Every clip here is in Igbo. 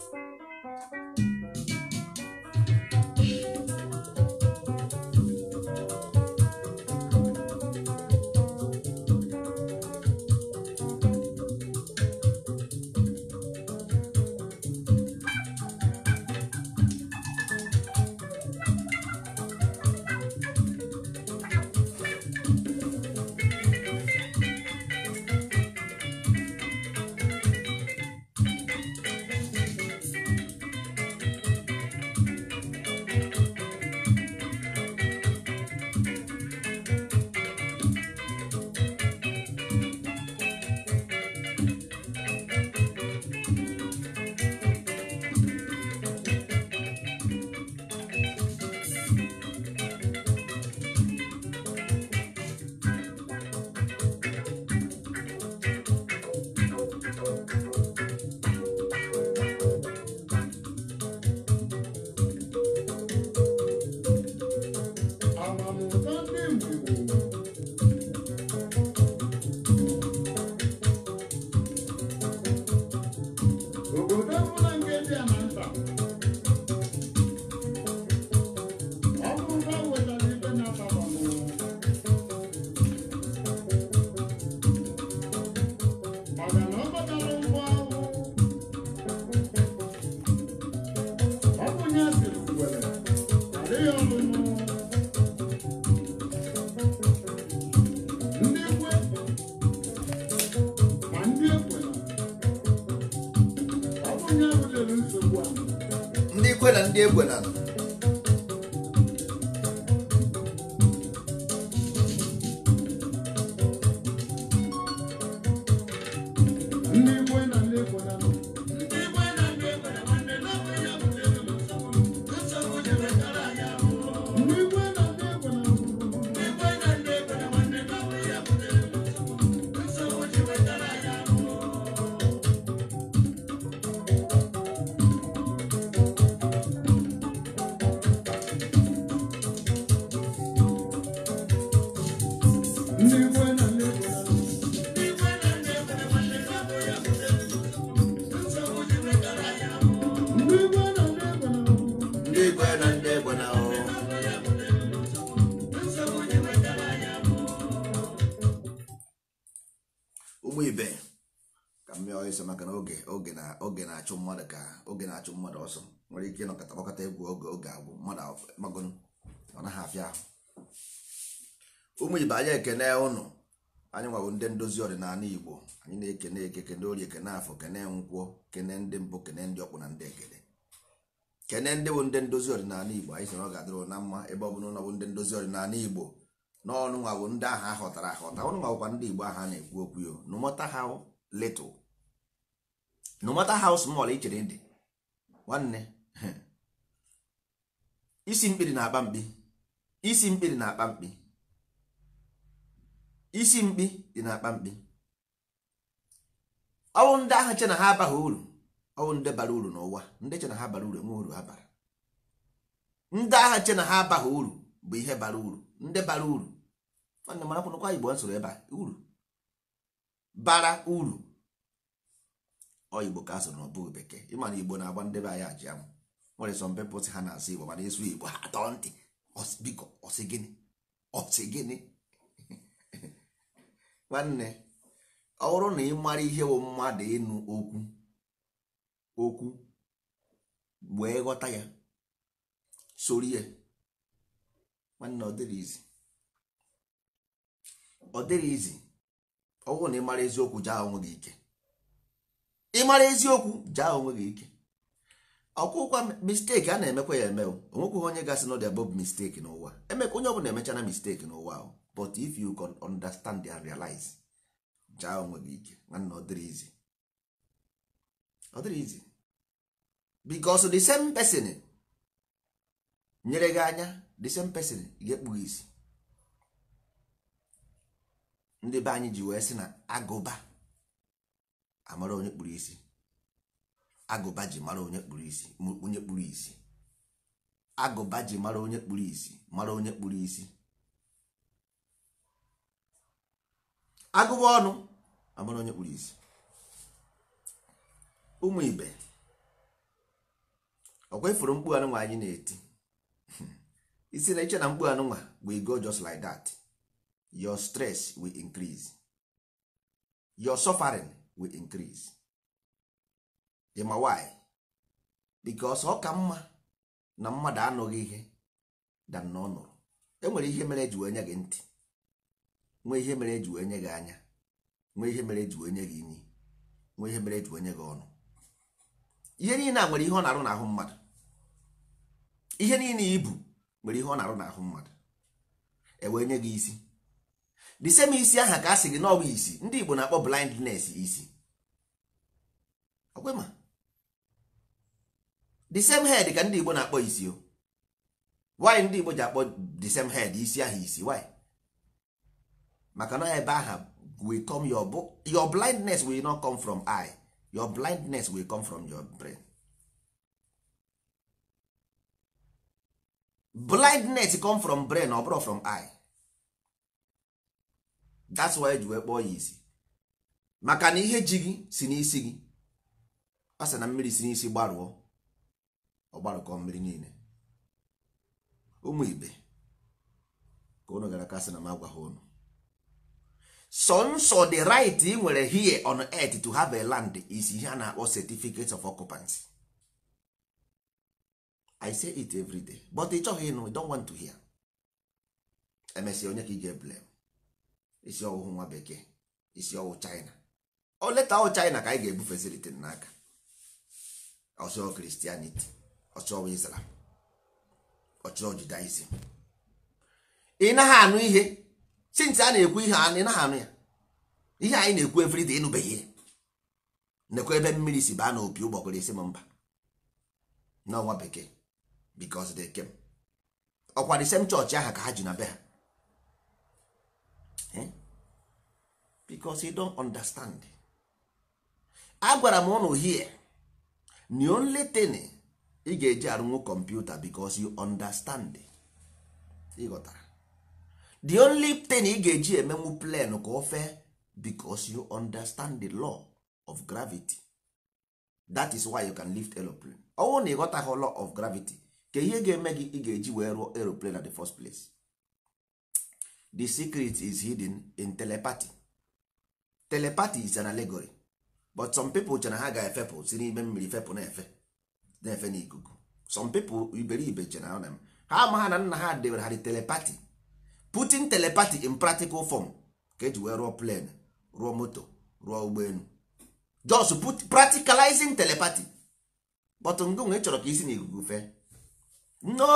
a a egbe na oge na-achụ mmadụ ọsọ nwere ike ịnọkọta gbakọta egwu oge oge agwụ mmadụ ọ naghị afịa ahụ ụmụ ibe anyị ekene ụnụ anyị nwawo ndị ndozi ọdịnala igbo anyị na-ekene eke kene ori ekene afọ kene nkwụọ kene ndị mbụ kene ndị ọkwụ na ndị ekene kene ndị bụ ndị ndozi ọdịnala igbo anyị sị ọ na mma ebe ọ bụla ụlọ bụ ndị ndozi ọdịnala igbo na ọnụ ndị ahụ họtara ahọta ọnụ igbo ahụ a na-ekwu okwu nwanne isi mkpiri na-akpa mkpi isi mkpiri na-akpa mkpi isi mkpi dị na-akpa mkpi ọwụ ndị ahụ che na ha abaghị uru ọwụ ndị bara uru n'ụwa ndị che na ha bara uru enwe uru ha bara ndị agha che na ha abaghị uru bụ ihe bara uru ndị bara uru nwanne mara kwụnụkwa igbo nsoro ebe a uru bara uru ọ igbo ka a n'ọbụ na ọ bụghị bekee ịma na igbo na-agba ndebe anyị aji amụ nwere some people si ha na-asụ igbo mana ịsụ igbo ha atọ ntị biko ọsị gịnị ọsị gịnị nwanne ọ bụrụ na ị mara ihe bụ mmadụ ịnụ okwu okwu wee ghọta ya soro ihe. nwanne ọ dịrị izi ọ dịrị izi ọ bụrụ na ị mara eziokwu jaa onwe gị ike ị mara eziokwu jaa onwe gị ike ọkwụkwa misteki a na-emekwa ya eme o. onwekweghị onye gasị n'ọdị above misteki n'ụwa emeka onye ọbụla na misteki n'ụwa ahụ but if you can understand and realize jaa onwe gị ike nwanna ọ dịrị izi ọ dịrị izi because the same person nyere gị anya the same person ga-ekpu isi ndị be anyị ji wee sị na agụba amara onye kpuru isi agụba ji mara onye kpuru isi onye kpuru isi agụba ji mara onye kpuru isi mara onye kpuru isi agụba ọnụ amara onye kpuru isi ụmụ ibe ọkwa ifuru mkpu anụnwa anyị na-eti isi na iche na mkpu anụnwa we go just like that your stress will increase your suffering will increase ọ ka mma na mmadụ anụghị ihe dan na enwere ihe mere eji wee gị ntị nwee ihe mere eji wee gị anya nwee ihe mere eji wee gị ihe mere eji wee gị ọnụ ihe niile nwere ihe ọ na-arụ n'ahụ mmadụ ihe niile ibu nwere ihe ọ na-arụ aha e ka a sị gị ndị Igbo na-akpọ blindness isi okwe ma the same head ka ndị Igbo na-akpọ isi o why ndị Igbo ji akpọ the same head isi ahụ isi why maka na ebe aha will come your, your blindness will not come from eye your blindness will come from your brain blindness come from brain ọ bụrụ from eye that's why eji wee kpọọ ya isi maka na ihe ji gị si n'isi gị a sị na mmiri si n'isi gbarụọ ọgbarụkọ mmiri niile ụmụ ibe ka unu gara kasị na m agwa ha unu sọnsọ the right ị nwere here on earth to have a land is ihe a na-akpọ certificate of occupancy i say it every day but ị chọghị ịnụ don't want to hear emesịa onye ka ị ga-eblem isi ọwụhụ nwa bekee isi ọwụ china o leta ọwụ china ka anyị ga facility n'aka ọchọọ kristianity ọchọọ islam ọchọọ judaism ị naghị anụ ihe since a na-ekwu ihe ị naghị anụ ya ihe anyị na-ekwu everyday ịnụbeghị ihe nekwa ebe mmiri si baa n'opi ụgbọgụrụ isi m mba n'ọnwa bekee because de kem ọkwa the same church aha ka ha ji na be ha eh? because don don't agwara m ụnụ here n'i only thing ị ga-eji arụnwu kọmputa because you understand ịghọtara the only thing ị ga-eji emenwu plan ka o fee because you understand the law of gravity that is why you can lift aeroplane ọ bụrụ na ịghọtaghị law of gravity ka ihe ga-eme gị ị ga-eji wee rụọ aeroplane at the first place the secret is hidden in telepathy telepathy is an allegory but some people chere ha ga-efepụ si n'ime mmiri fepụ na-efe na-efe n'ikuku some people iberibe chere ha na ha ama na nna ha debere ha dị telepati putin telepati in practical form ka eji wee rụọ plen rụọ moto rụọ ụgbọelu just put practicalizing telepati but ngonwe ị chọrọ ka isi n'ikuku fee no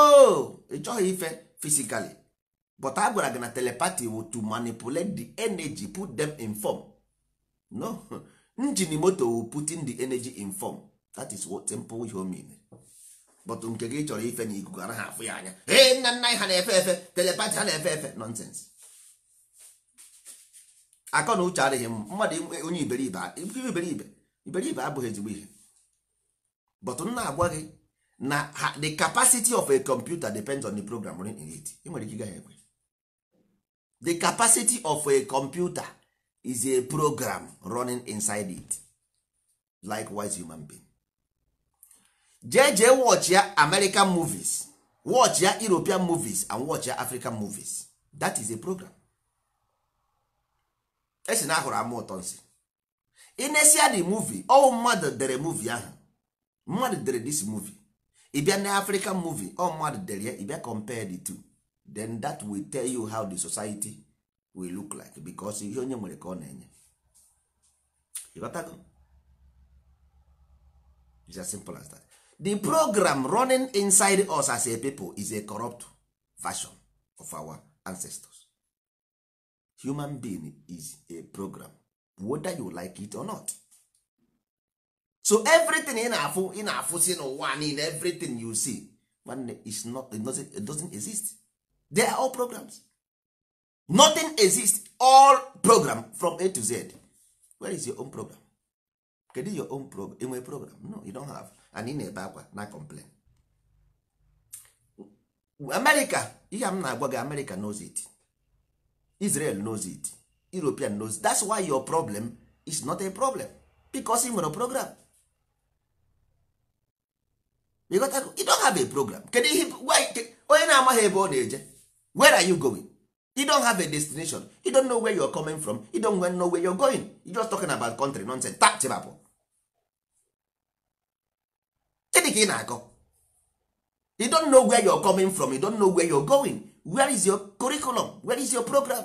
ị chọghị ife physically but a gwara gị na telepati wụ to manipulate the energy put them in form no njin moto putin putting the energy in form that is what simple ihe o mean but nke gị chọrọ ife na ikuku anaghị afụ ya anya ee nna nna ha na-efe efe telepati ha na-efe efe nonsense akọ na uche adịghị mmadụ onye iberibe iberibe iberibe abụghị ezigbo ihe but m na-agwa gị na the capacity of a computer depends on the program running in it nwere ike gaghị ekwe the capacity of a computer is a program running inside it likewise human being jee jee watch ya american movies watch ya european movies and watch ya african movies that is a program esi na ahụrụ ama ụtọ nsị inesia the movie ọwụ mmadụ dere movie ahụ mmadụ dere this movie bịa na african movie ọ mmadụ dere ya bịa compare the two then that will tell you how the society we look like because ihe onye nwere ka ọ na-enye It's as simple as that. the program running inside us as a people is a corrupt version of our ancestors human being is a program whether you like it or not so everything ị na-afụ ị na-afụ si n'ụwa niile everything you see is not it doesn't, it doesn't exist they are all programs nothing exist all program from a to z where is your own program kedu your own program enwe program no you don't have and ị na-ebe akwa na complain america ihe m na-agwa gị america knows it israel knows it european knows it. that's why your problem is not a problem because ị nwere program you don't have a program kedu ihe onye na-amaghị ebe ọ na-eje where are you going you don't have a destination you don't know where you're coming from you don't know where you're going you just talking about country nonsense ta chibapụ gịnị ka ị na-akọ you don't know where you're coming from you don't know where you're going where is your curriculum where is your program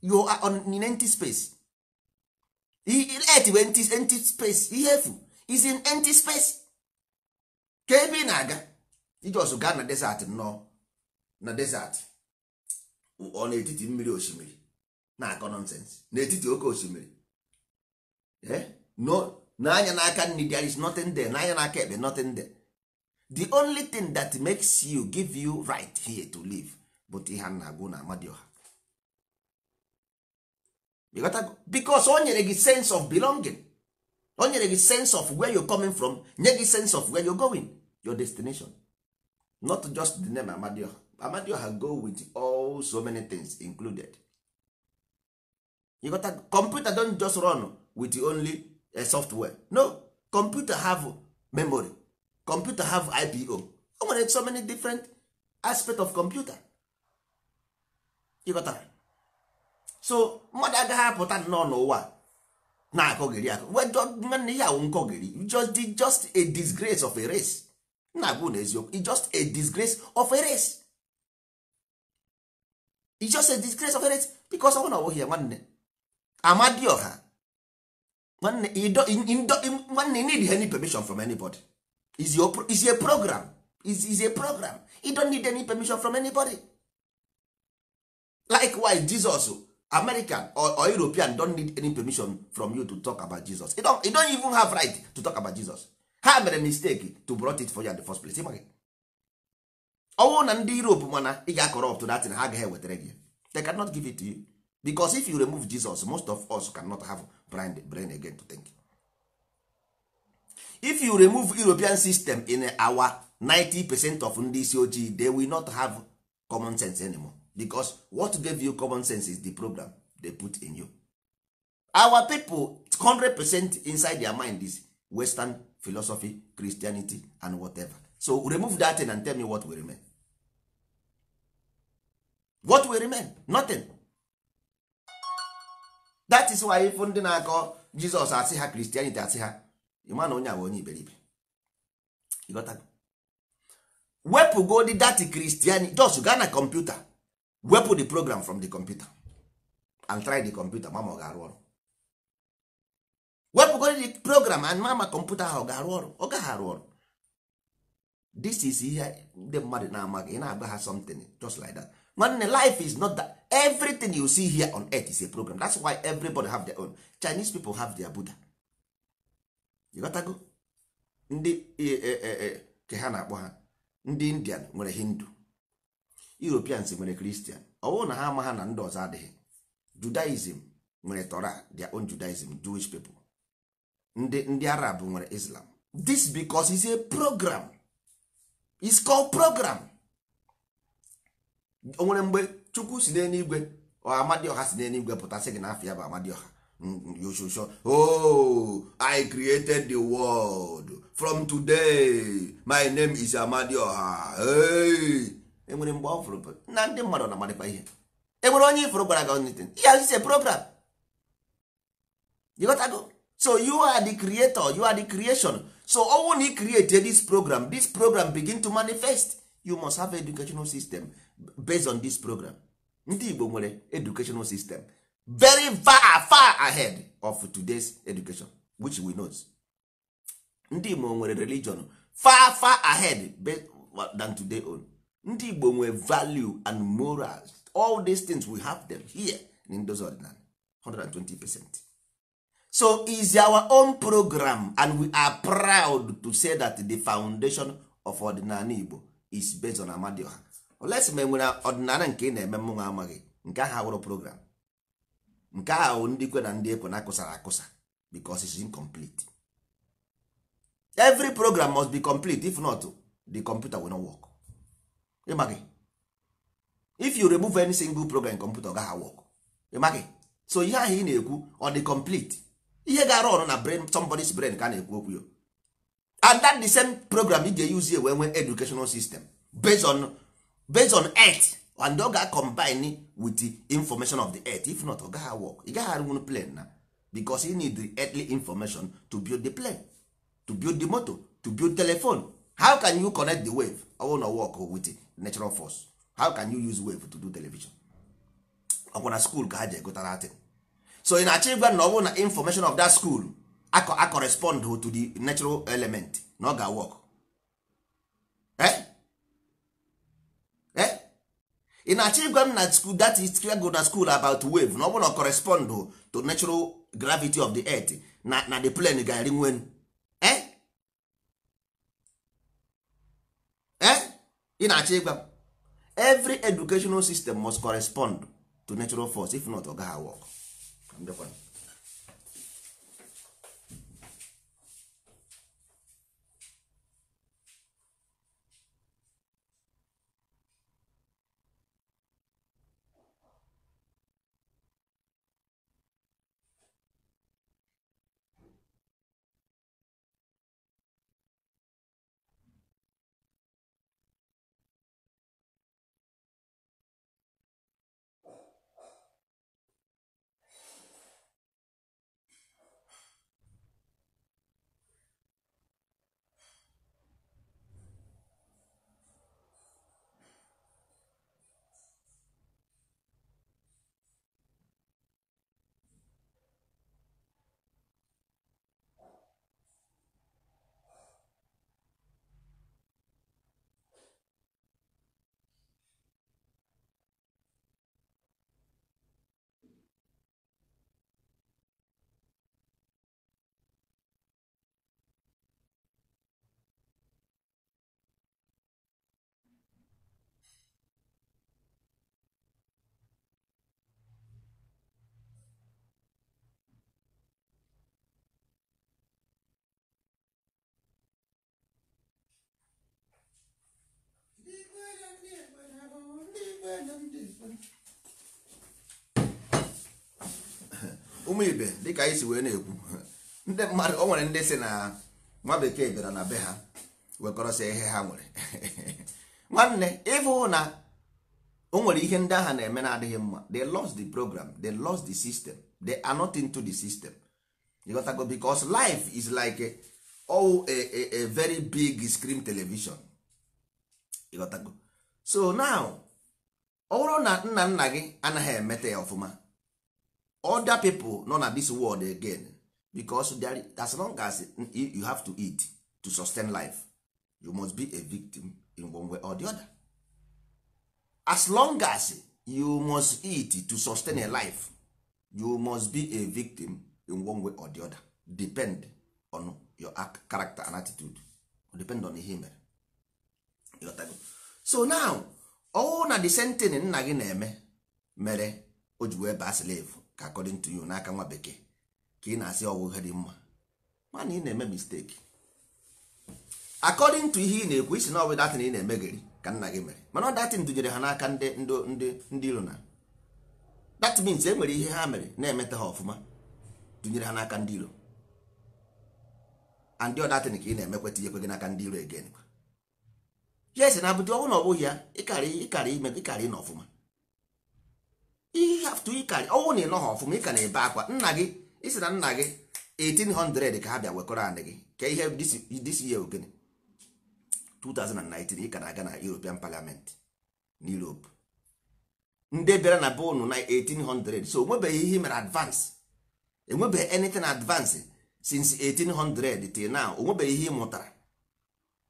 you are on in empty space earth wee empty, empty space ihe efu is in empty space ka ebe ị na-aga ijos gaa na desert nnọọ na desert ọ n'etiti mmiri osimiri na-akọ na n'etiti oke osimiri eh? n'anya n'aka nri there is nothing there n'anya n'aka ekpe nothing there the only thing that makes you give you right here to live but ihe na-agụ na amadioha because o nyere gị sense of belonging o nyere gị sense of where you coming from nye gị sense of where you going your destination not just the name amadioha amadioha go with all so many things included you got a computer don't just run with only a software no computer have memory computer have ipo o nwere so many different aspect of computer ịghọtara so mmadụ agaghị apụta nnọọ n'ụwa na-akọgiri akọ nwanne ya awụ nkọgiri just a disgrace of a race na-abụ n'eziokwu just a disgrace of a race it's just a grace of it because ọ bụrụ na ọ bụghị ya nwanne amadioha nwanne nwanne need any permission from anybody is your is a program is is a program you don't need any permission from anybody likewise jesus american or, or european don't need any permission from you to talk about jesus you don't, you don't even have right to talk about jesus ha mere mistake to brought it for you at the first place ọnwụ na ndị europe mana ị ga-akọrọpt datin ha agaghị ewetara gị they cannot give it to you because if you remove jesus most of us cannot have brain, brain again to think if you remove european system in our 90 percent of ndị isi ojii they will not have common sense anymore because what gave you common sense is the program they put in you our people 100 percent inside their mind is western philosophy christianity and whatever so remove that thing and tell me what will remain what will remain nothing that is why if ndị na-akọ jizọs asị ha kristianity asị ha ịma na onye a onye iberibe wepụ godi dat kristianity just gaa na kọmputa wepụ the program from the computer and try the computer mama ọ ga-arụ ọrụ wepụ godi the program and mama kọmputa ha ọ ga-arụ ọrụ ọ gaghị arụ ọrụ this is ihe ndị mmadụ na-amaghị ị na-agba ha something just like that nwanne life is not that everything you see here on earth is a program that's why everybody have their own chinese people have their buddha you ndị e, e, e, ke ha na-akpọ ha ndị indian nwere hindu europeans nwere christian ọwụ na ha ama ha na ndị ọzọ adịghị judaism nwere torah their own judaism jewish people ndị ndị arab nwere islam this because is a program is called program o nwere mgbe chukwu si n'eluigwe amadioha si n'eluigwe pụta sị gị na afọ ya bụ amadioha yoshosho oh i created the world from today my name is amadioha enwere mgbe ọ na ndị mmadụ na-amarịkwa ihe enwere onye ifụrụ gwara gị onitin ihe azụzi program you got to go so you are the creator you are the creation so ọnwụ na create this program this program begin to manifest you must have educational system based on this program ndị igbo nwere educational system very far far ahead of today's education which we know ndị igbo nwere religion far far ahead than today own ndị igbo nwere value and morals all these things we have them here in those ordinary 120 percent. so is our own program and we are proud to say that the foundation of ọdịnala Igbo is based on Amadioha olesi ma enwere ọdịnala nke ị na-eme mụnwa amaghị nke ahụ awụrụ program nke ahụ ndị kwe na ndị ekwe na akụsara akụsa because it's incomplete every program must be complete if not the computer will not work ịmaghị if you remove any single program computer ọ gaghị work ịmaghị so ihe ahụ ị na-ekwu ọ dị complete ihe ga-arụ ọrụ na brain somebody's brain ka a na-ekwu okwu and that the same program ị ga-eyuzie wee nwee educational system based on based on earth and oga ga-combine with the information of the earth if not oga work ị gaghị arụnwu plan na because you need the earthly information to build the plane to build the motor to build telephone how can you connect the wave ọwụ na work with the natural force how can you use wave to do television Ogbunna school ka ha ji egotara so ị na-achọ ịgwa na ọ bụrụ na information of that school a correspond to the natural element na ọ ga-work ị eh? eh? na-achọ ịgwa m na school that is go na school about wave na ọ bụrụ na correspond to natural gravity of the earth na na the plane ga-eri nwen ị eh? na-achọ ịgwa every educational system must correspond to natural force if not ọ gaghị work I'm joking. ụmụ ibe dịka anyị si wee na-ekwu ndị mmadụ o nwere ndị si na nwa bekee bịara na be ha wekọrọsịa ihe ha nwere nwanne ịfụ na o nwere ihe ndị agha na-eme na-adịghị mma they lost the program they lost the system they are not into the system ịghọtago because life is like a, oh, a, a, a very big screen television ịghọtago so now ọ bụrụ na nna nna gị anaghị emete ya ọfụma other people nọ na this world again because as long as you have to eat to sustain life you must be a victim in one way or the other as long as you must eat to sustain a life you must be a victim in one way or the other depend on your character and attitude depend on ihe mere so now ọnwụ na desentini nna gị na-eme mere o ji wee baa slave ka according to you n'aka nwa bekee ka ị na-asị ọwụ ihe dị mma mana ị na-eme mistake according to ihe ị na-ekwu isi na ọ bụ ị na-emegeri ka nna gị mere mana ọ datin dunyere ha n'aka ndị ndị ndị iro na that means e nwere ihe ha mere na-emeta ha ọfụma dunyere ha n'aka ndị iro and ọ datin ka ị na emekwe ihe ekwe gị n'aka ndị iro egen ya esi na bụdị ọnwụ na ọbụghị ya ịkarị ime ịkarị na ọfụma ihaftu ịkarị ọnwụ na ịnọ ọfụma ịka na-ebe akwa nna gị isi na nna gị 1800 ka ha bịa wekọrọ anị gị ka ihe disi ya ogene 2019 ka na-aga na European Parliament na Europe ndị bịara na be unu na 1800 so onwebeghị ihe mere advance enwebeghị anything advance since 1800 till now onwebeghị ihe ị mụtara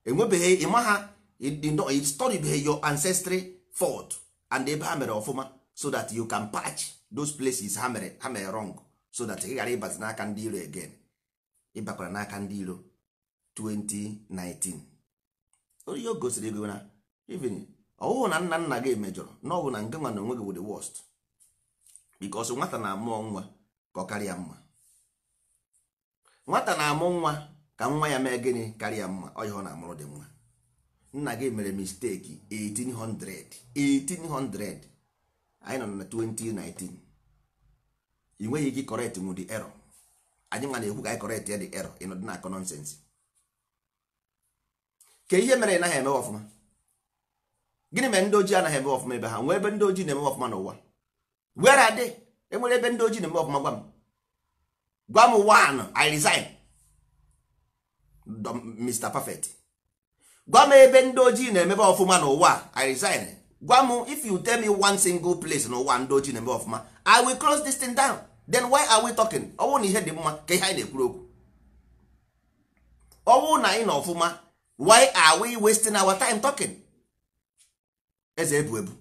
enwebeghị ịma ha ịstọdibeghị your ancestry fault and ebe ha mere ọfụma so that you can patch those places ha mere ha mere wrong so that ị ghara ịbazi n'aka ndị iro again ịbakwara n'aka ndị iro 2019 onye o gosiri ego na even ọwụhụ na nna nna gị emejọrọ na ọ na nke nwa na onwe gị bụ the worst because nwata na-amụọ nwa ka ọ karịa mma nwata na-amụ nwa ka nwa ya mee gịnị karịa mma ọ ihe ọ na-amụrụ dị mma nna gị mere misteki 1800 1800 anyị nọ na 2019 ị nweghị ike correct nwu dị error anyị nwa na-ekwu ka anyị correct ya dị error ị nọdị na-akọ nọnsensị ka ihe mere ị naghị eme ọfụma gịnị mere ndị ojii anaghị eme ọfụma ebe ha nwee ebe ndị ojii na-eme ọfụma n'ụwa were adị they enwere ebe ndị ojii na-eme ọfụma gwa m gwa m one I Mr. Perfect gwa m ebe ndị ojii na-emebe ọfụma n'ụwa i resign gwa m if you tell me one single place n'ụwa ndị ojii na-emebe ọfụma i will close this thing down then why are we talking ọwụ na ihe dị mma ka ihe anyị na-ekwuru okwu ọwụ na anyị na ọfụma why are we wasting our time talking eze ebu ebu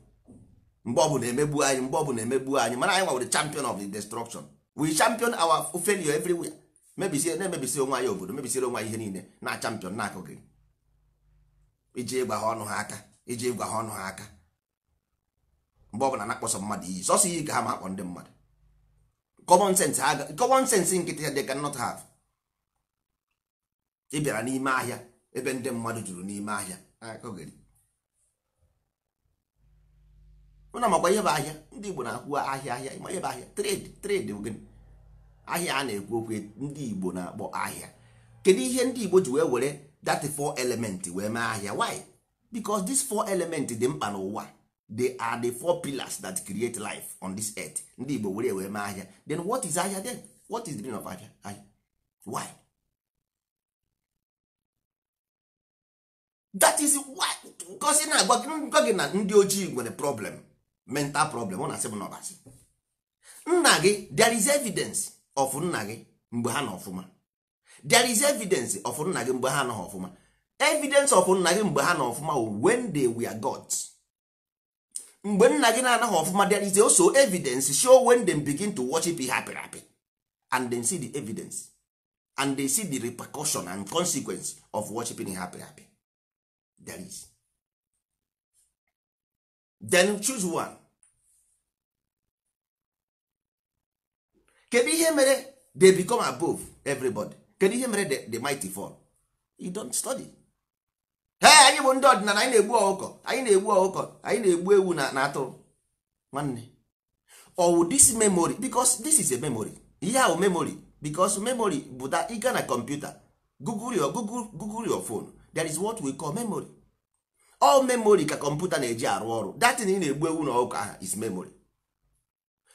mgbe ọbụla emegbu anyị mgbe ọbụla emegbu anyị mana anyị nwere champion of the destruction we champion our failure everywhere mebisi na-emebisi onwe anyị obodo mebisiri onwe anyị ihe niile na champion na gị iji ịgwa ha ọnụ ha aka iji ịgwa ha ọnụ ha aka mgbe ọbụla na-akpọsọ mmadụ iyi sọsọ iyi ka ha ma akpọ ndị mmadụ common sense common sense nkịtị ya they not have ị bịara n'ime ahịa ebe ndị mmadụ juru n'ime ahịa ụna makwa ihe bụ ahịa ndị Igbo na-akwụ ahịa ahịa ịma ihe bụ ahịa trade trade ogene ahịa a na-ekwu okwu ndị Igbo na-akpọ ahịa kedu ihe ndị Igbo ji wee were that four element wee mee ahịa why because this four element dị mkpa n'ụwa they are the four pillars that create life on this earth ndị Igbo were wee mee ahịa then what is ahịa then what is the meaning of ahịa ahịa why that is why ngozi na-agwa gị na ndị ojii nwere problem mental problem ọ na-asị m n'ọbasị nna gị there is evidence of nna gị mgbe ha na ọfụma there is evidence of nna gị mgbe ha nọ ọfụma evidence of nna gị mgbe ha nọ ọfụma when they were gods mgbe nna gị na-anaghị ọfụma there is also evidence show when them begin to worship ihe apịrị apị and they see the evidence and they see the repercussion and consequence of worshiping ihe apịrị there is then choose one kedu ihe mere they become above everybody kedu ihe mere the mighty fall you don't study hey anyị bụ ndị ọdịnala anyị na-egbu ọkụkọ anyị na-egbu ọkụkọ anyị na-egbu ewu na atụrụ nwanne ow this memory because this is a memory ihe ahụ memory because memory bụ that ịga na kọmputa google your google google your phone that is what we call memory all memory ka kọmputa na-eji arụ ọrụ datin ị na-egbu ewu na ọkụkọ aha is memory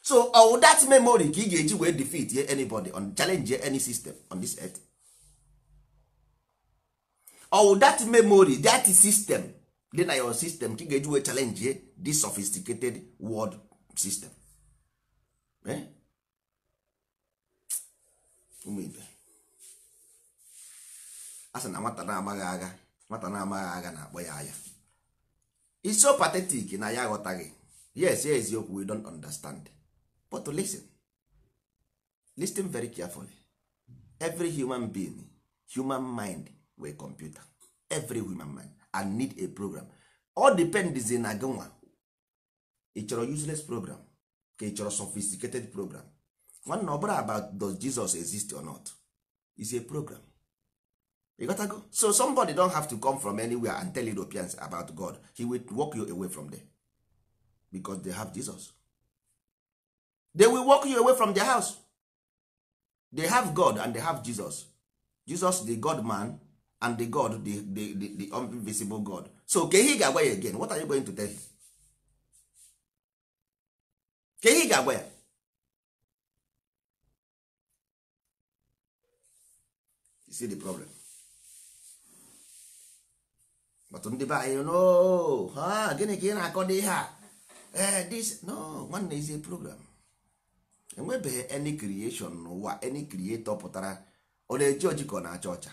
so all uh, that memory ka ị ga-eji wee defeat ye anybody on challenge any system on this earth all that memory that system dị na your system ka ị ga-eji wee challenge ye this sophisticated world system eh? ụmụibe a sị na nwata na-amaghị agha nwata na-amaghị agha na-akpọ ya anya it's so pathetic na ya aghọtaghị yes eziokwu we don't understand but to listen listen very carefully every human being human mind wey computer every human mind and need a program all depends na gị nwa ị chọrọ useless program ka ị chọrọ sophisticated program nwanna ọ about does jesus exist or not is a program you got to go so somebody don have to come from anywhere and tell europeans about god he will walk you away from there because they have jesus they will walk you away from their house they have god and they have jesus jesus the god man and the god the, the, the, the invisible god so ke ihe ga-agwa ya again what are you going to tell him? ke ihe ga-agwa ya you see the problem but ndị be anyị no ha gịnị ka ị na-akọ a this no one is a program. enwebeghị any creation n'ụwa any creator pụtara ọ na-eji ojikọ na-acha ọcha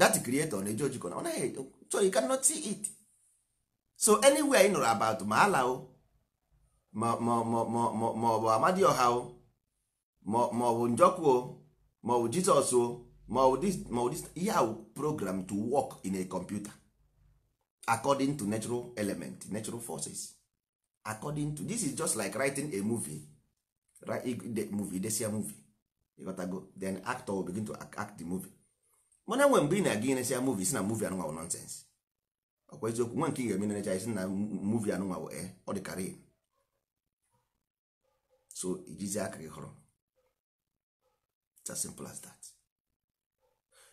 that creator ọ na-eji ojikọ na ọ naghị so you cannot see it so anywhere ị nụrụ about ma ala o ma ọ bụ ọha o ma ọ bụ njọkụ o ma ọ bụ jizọs o ma ọ bụ ihe ahụ program to work in a computer according to natural element natural forces according to this is just like writing a movie movie idesia movie ịghọtago then actor will begin to act the movie mana nwe mgbe ị na-aga inesia movie si na movie anụnwa bụ nonsens ọkwa eziokwu nwa nke ị ga-eme nenecha isi na movie anụnwa bụ e ọ dị karịa so ijizi aka gị hụrụ it's as simple as that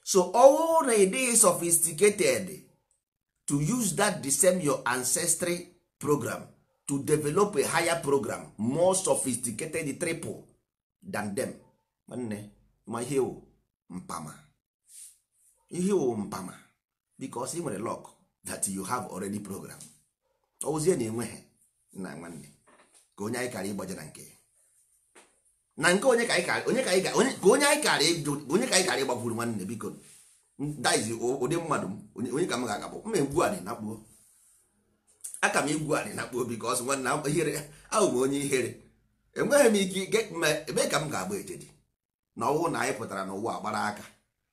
so ọwụ na ị dịghị sophisticated to use that the same your ancestry program to develop a higher program more sophisticated triple than them nwanne ma ihe wụ mpama ihe wụ mpama because ị nwere luck that you have already program ozie na enweghị na nwanne ka onye anyị kara ịgbaje na nke na nke onye ka anyị kara ịgbakwuru nwanne biko daizi ụdị mmadụ onye ka m ga-agabụ mma egbu anị na kpuo aka m igwu anị na obi ka ọ sị nwanna ihere ahụ m onye ihere enweghị m ike ebe ka m ga-agba ejedi na ọwụ na anyị pụtara n'ụwa gbara aka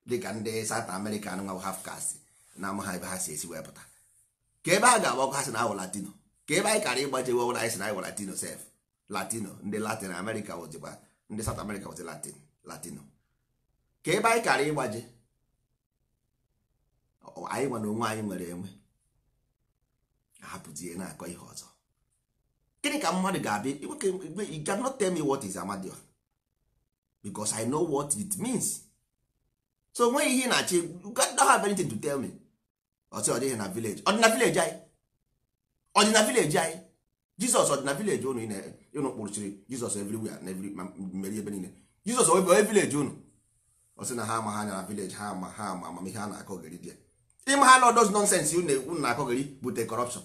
dịka ndị South American nwa hafkasị na amaha ebe ha si esi wepụta ka ebe a ga agba ọkụ ha si na ahụ latino ka ebe anyị kara ịgbaje wewụra anyị si na ahụ latino sef latino ndị latin america wụzikwa ndị South America wụzi latin latino ka ebe anyị kara ịgbaje anyị nwa onwe anyị nwere enwe hapụzie na-akọ ihe ọzọ gịnị ka mmadụ ga-abịa you cannot me what is Amadioha because I know what it means so nweghị ihe na-achị you don't anything to tell me ọsị ọdịghị na village ọdịna village anyị ọdịna village anyị Jizọs ọdịna village unu unu kpụrụchiri Jizọs everywhere na every mmeri ebe niile Jizọs ebe village unu ọsị na ha ama ha na village ha ama ha ama amamihe a na-akọgịrị bịa ịma ha na ọdọz nọnsensị unu na-akọgịrị bute kọrọpshọn.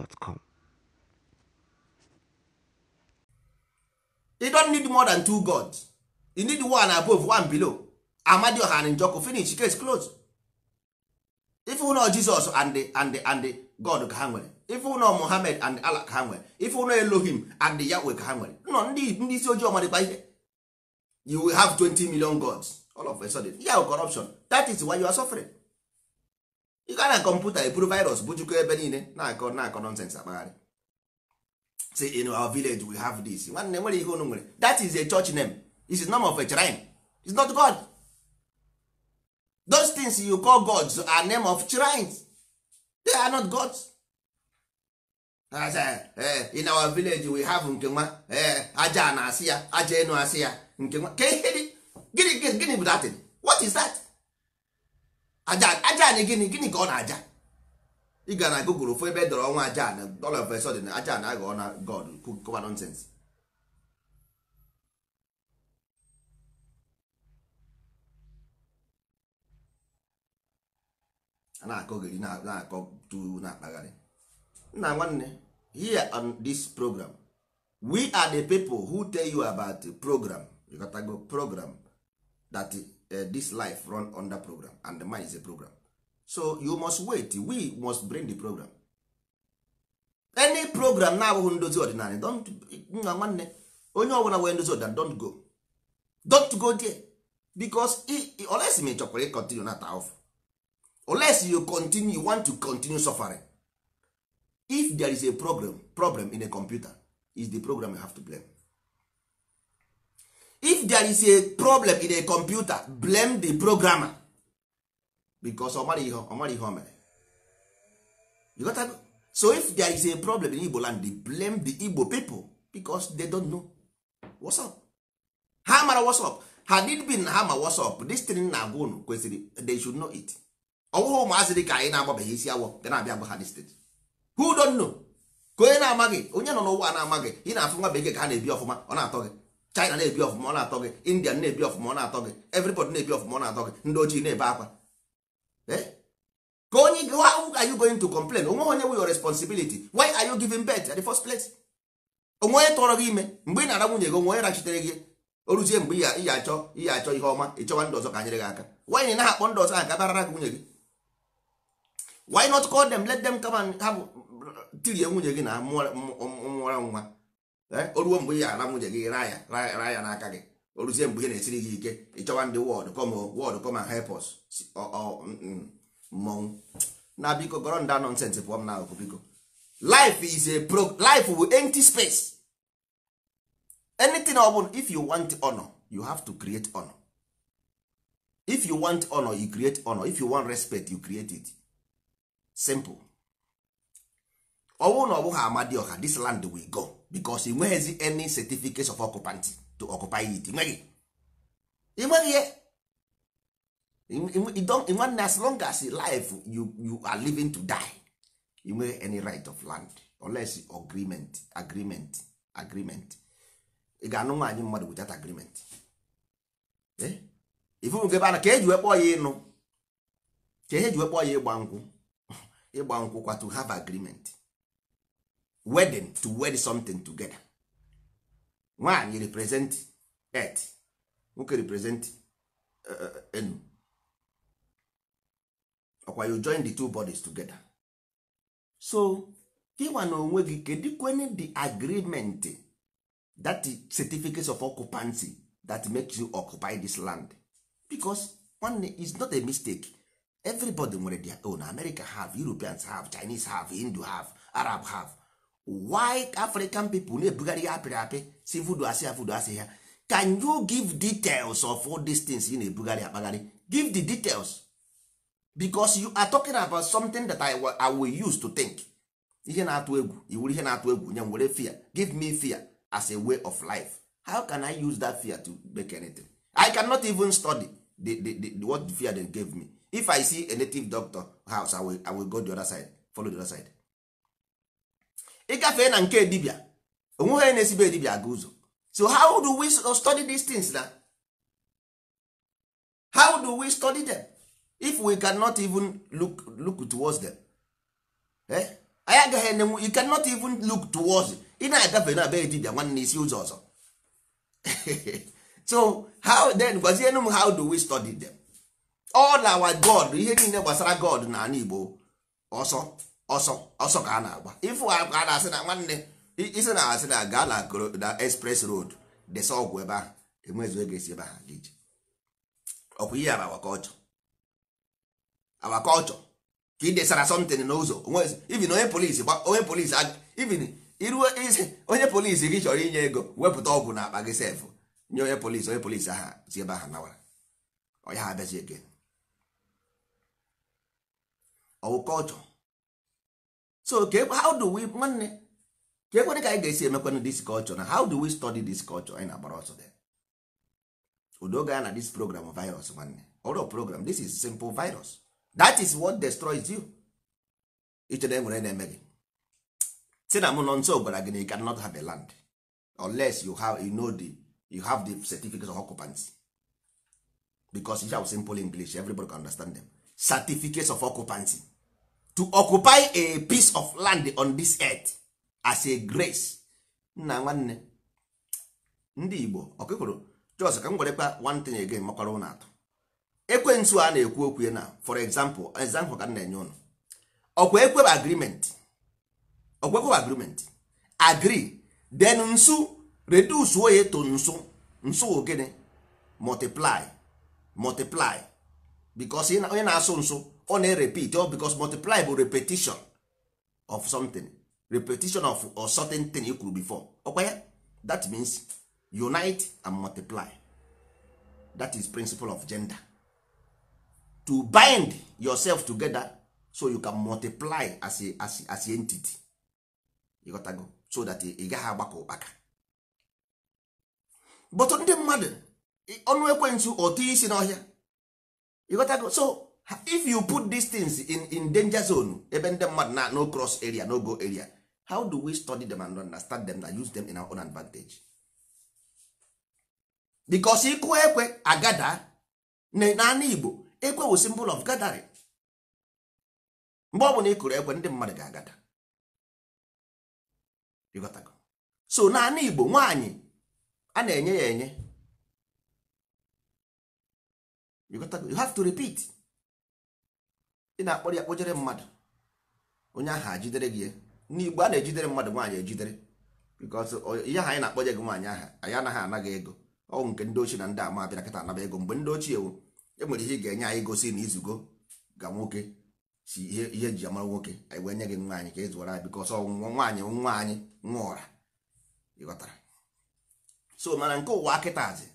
gmail.com. You don't need more than two gods. You need one above, one below. Amadioha and Njoko finish case closed. if ụnọ jesus and the, and the, and the God ka ha nwere. Ife ụnọ Muhammad and Allah ka ha nwere. Ife ụnọ Elohim and the Yahweh ka ha nwere. Nọ ndị ndị isi ojii ọmadịkwa ihe. You will have 20 million gods all of a sudden. Yeah, corruption. That is why you are suffering. ị ga na kọmputa eburu virus bujukọ ebe niile na-akọ na-akọ nonsens akpagharị si in our village we have this nwanne nwere ihe unu nwere that is a church name this is name of a shrine it's not god those things you call gods are name of shrines they are not gods eh, in our village we have nke nwa eh, aja na asị ya aja enu asị ya nke nwa gịnị gịnị bụ that what is that aja anyị gịnị gịnị ka ọ na-aja ị gaa na google ofu ebe e dọrọ ọnwa aja na dollar of na aja na aghọ na god kụba nonsense a na-akọ ogiri na-akọ tu na-akpagharị nna nwanne here on this program we are the people who tell you about the program program that Uh, this life run under program and the mind is a program so you must wait we must bring the program any program na-abụghị ndozi ọdịnala don't nwa nwanne onye ọbụla nwere ndozi ọdịnala don't go don't go there because unless ma chọkwara ịcontinue na taof unless you continue you want to continue suffering if there is a program problem in a computer is the program you have to blame if there is a problem in a computer blame the programmer because ọ mara ihe ọ mara ihe o mere you got that so if there is a problem in igbo land blame the igbo people because they don't know what's up ha mara what's up ha did bin ha ma what's up this thing na agwa unu kwesịrị they should know it ọwụghị ụmụazị dị ka anyị na-agbabeghị isi awọ dị na-abịa gwa ha this thing who don't know ka onye na-amaghị onye nọ n'ụwa na-amaghị ị na-afụ nwa bekee ka ha na-ebi ọfụma ọ na-atọ gị china na-ebi ọfụma ọ na-atọ gị india na-ebi ọfụma ọ na-atọ gị everybody na-ebi ọfụma ọ na-atọ gị ndị ojii na-ebe akwa eh? ka onye gị how are you going to complain onwe onye wu your responsibility why are you giving birth at the first place onwe onye tọrọ gị ime mgbe ị na-ara nwunye gị onwe onye rachitere gị oruzie mgbe ị ya achọ ihe achọ ihe ọma ịchọwa ndị ọzọ ka anyere gị aka why na akpọ ndị ọzọ ha barara gị nwunye gị why not call them let them come and have tirie nwunye gị na mụọra nwa Eh, o ruo mgbe ị ya ara nwunye gị raa ya raa ya n'aka gị o ruzie mgbe ihe na-esiri gị ike ịchọwa ndị wọd kọm wọd kọm hepọs mmọnwụ na biko gọrọ ndị nọnsens pụọ m n'akụkụ biko life is a pro life will empty space anything ọ bụla if you want honor you have to create honor if you want honor you create honor if you want respect you create it simple ọ bụrụ na ọ bụghị ọha, this land will go bicos ị nweghịzi any certificate of occupant to occupy it nweghị ịnweghị ya nwanne as long as life you, you are living to die you nweghị any right of land unless agreement agreement agreement ị ga-anụ nwaanyị mmadụ without agreement ifụnke ebe ana ka eji wekpọ ya ịnụ ka ihe ji wekpọ ya ịgba nkwụ ịgba nkwụ kwa to have agreement wedding to wed something together nwaanyị represent earth nwoke represent eh, eh, eh, enu ọkwa you join the two bodies together so him na onwe gị kedukwen the agreement that certificate of occupancy that makes you occupy this land because one is not a mistake everybody nwere their own america have europeans have chinese have hindu have arab have why african people na-ebugharị ya apịrị apị si vudu asị ya vudu asị ya can you give details of all these things ị na-ebugharị akpagharị give the details because you are talking about something that I, I will use to think ihe na-atụ egwu iwuru ihe na-atụ egwu nye were fear give me fear as a way of life how can I use that fear to make anything I cannot even study the, the, the, the what the fear they gave me if I see a native doctor house I will, I will go the other side follow the other side gafee na nke dibia onweghị onye na-esibe dibia aga ụzọ so how do we study these things na how do we study them if we cannot even look, look towards them eh? anyị agaghị enenwu you cannot even look towards ị na-agafe na be dibia nwanne isi ụzọ ọzọ so how then gwazienụ m how do we study them all our god ihe niile gbasara god na ala igbo ọsọ ọsọ ọsọ ka a na-agba ifu ka a na-asị na nwanne isi na asị na gala na na express road desa ọgwụ ebe ahụ enwezu ego esi ebe ahụ gị ije ọkwa ihe bụ awakọlchọ awakọlchọ ka ị desara something n'ụzọ ivin onye polisi onye polisi ivin iruo isi onye polisi gị chọrọ inye ego wepụta ọgwụ na akpa gị sefụ nye onye polisi onye polisi ahụ si ebe ahụ nawara ọya ha abịazi ege ọwụ so ka how do we nwanne ka ekwere ka anyị ga-esi emekwanụ dis culture na how do we study this culture anyị na-agbara ọsọ dị udo na this program virus nwanne ọrụ program this is simple virus that is what destroys you ichere nwere na-eme gị si na mụ nọ nso gwara gị na you cannot have a land unless you have you know the you have the certificate of occupancy because you have simple English everybody can understand them certificates of occupancy to occupy a piece of land on this earth as a grace nna nwanne ndị igbo ọkụkwụrụ jos ka m werekwa one thing again makwara ụnụ atụ ekwensu a na-ekwu okwu na for example example ka m na-enye ụnụ ọkwa agreement agreement agree then nsu reduce oye to nsu nsu ogene multiply multiply because onye na-asụ nsu ọ na-erepit ọ bikos multiply bụ repetition of something repetition of a certain thing you kwuru before ọkwa ya that means unite and multiply that is principle of gender to bind yourself together so you can multiply as a, as a, as a entity ịghọtago so that ị gaghị agbakọ ụkpaka but ndị mmadụ ọnụ ekwentị you isi n'ọhịa go so if you put these things in, in danger zone ebe ndị mmadụ na no cross area no go area how do we study them and understand them and use them in our own advantage because ịkụ ekwe agada n'ala Igbo ekwe wụ symbol of gathering mgbe ọ bụla ị kụrụ ekwe ndị mmadụ ga-agada so n'ala Igbo nwaanyị a na-enye ya enye you have to repeat ị na-akpọrọ ya kpojere mmadụ onye ahụ ajidere gị n'igbo a na-ejidere mmadụ nwaanyị ejidere because ihe ahụ anyị na-akpọje gị nwaanyị aha anyị anaghị anaghị ego ọgwụ nke ndị ochie na ndị ama abịa kịta anaba ego mgbe ndị ochie enwere ihe ị ga-enye anyị gosi na izugo ga nwoke si ihe ihe ji amara nwoke anyị wee nye gị e nwa anyị ka ị zụwara because ọnwụnwa nwaanyị nwa anyị nwa ụra ịghọtara so mana nke ụwa kịtazị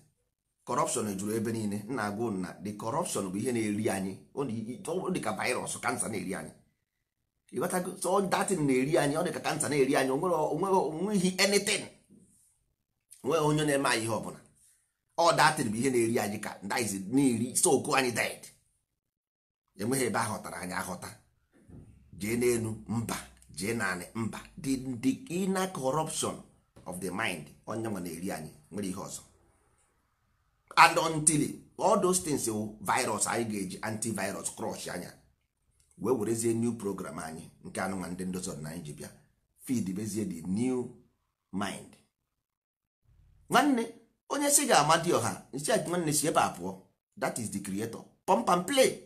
corruption juru ebe niile nna agụ nna the corruption bụ ihe na-eri anyị ọ dị ka virus kansa na-eri anyị ịghọtago so datin na-eri anyị ọ dị ka kansa na-eri anyị onweghị anything onweghị onye na-eme anyị ihe ọbụla ọ datin bụ ihe na-eri anyị ka ndiz na-eri soko anyị did enweghị ebe aghọtara anyị aghọta jee n'elu mba jee naanị mba dị inner corruption of the mind onye nwa na-eri anyị nwere ihe ọzọ and until all those things say oh, virus anyị ga-eji antivirus crush anya wee werezie new program anyị nke anụnwa ndị na-anyị ji bịa feed bezie the new mind nwanne onye si ga-amadi ọha nsị nwanne si ebe a that is the creator pump and play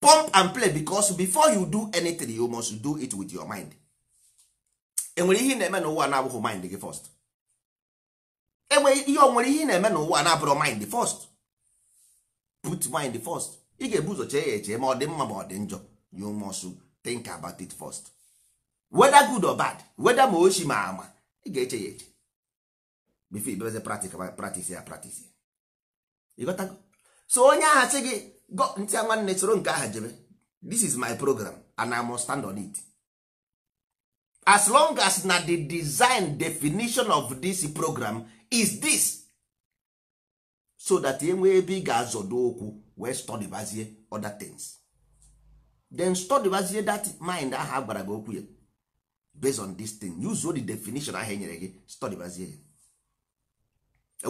pump and play because before you do anything you must do it with your mind enwere ihe na-eme n'ụwa na-abụghị mind gị first enwe ihe ọ nwere ihe ị na-eme n'ụwa na-abụrụ mind first put mind first ị ga-ebu ụzọ chee ya eche ma ọ dị mma ma ọ dị njọ you must think about it first whether good or bad whether ma ochi ma ama ị ga-eche ya eche before ibeze practice ya practice ya ịghọtago so onye agha sị gị ntị nwanne soro nke aha jebe this is my program and I must stand on it as long as na the design definition of this program is this so that enwee ebe ị ga-azọdo okwu wee stọdịbazie other things then stọdịbazie that mind ahụ agbara gị okwu ya based on this thing use the definition ahụ enyere gị stọdịbazie ya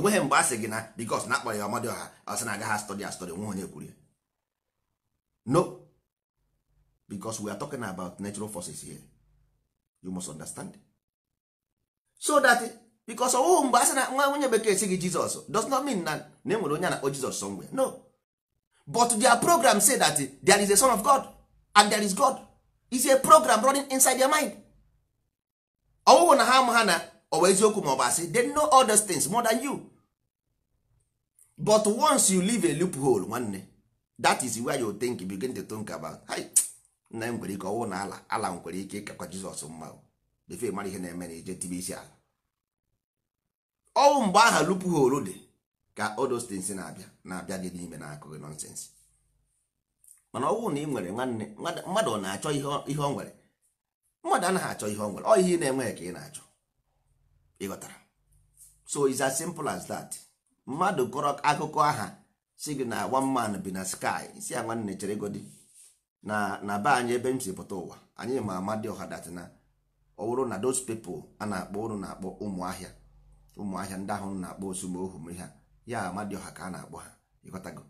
enweghị mgbe a sị gị na because na akpọrọ ya ọmadị ọha ọsị na agaghị stọdị astọdị nwe onye kwuru ya no because we are talking about natural forces here you must understand so that because ọwụwụ mgbe a sị na nwa nwunye bekee si gị jizọs does not mean na na e nwere onye na-akpọ jizọs somewhere no but their program say that there is a son of god and there is god is a program running inside their mind ọwụwụ na ha ama ha na ọwa eziokwu ma ọ bụ asị they know all those things more than you but once you leave a loophole nwanne that is where you think you begin to think about nna m e nwere ike ọwụ na ala ala nwere ike ịkakwa jizọs mma befe mara ihe na-eme na ije tibe isi ala ọnwụ mgbe aha lupu holu dị ka odostins na-abịa na-abịa gị n'ime na-akụghị nọnsensị mana ọnwụ na ị nwere nwanne mmadụ na-achọ ihe ọ nwere mmadụ anaghị achọ ihe ọ nwere ọ ihe ị na-enweghị ka ị na-achọ ịghọtara so is as simple as that mmadụ kọrọ akụkọ aha si gị na one man bi na sky si ya nwanne chere godi na na be anyị ebe m si pụta ụwa anyị ma ama dị ọha dat na ọ bụrụ na those people a na-akpọ ụrụ na-akpọ ụmụ ahịa ụmụahịa ndị ahụ na-akpọ osumohu ma ha ya ọha ka a na-akpọ ha ịghọtago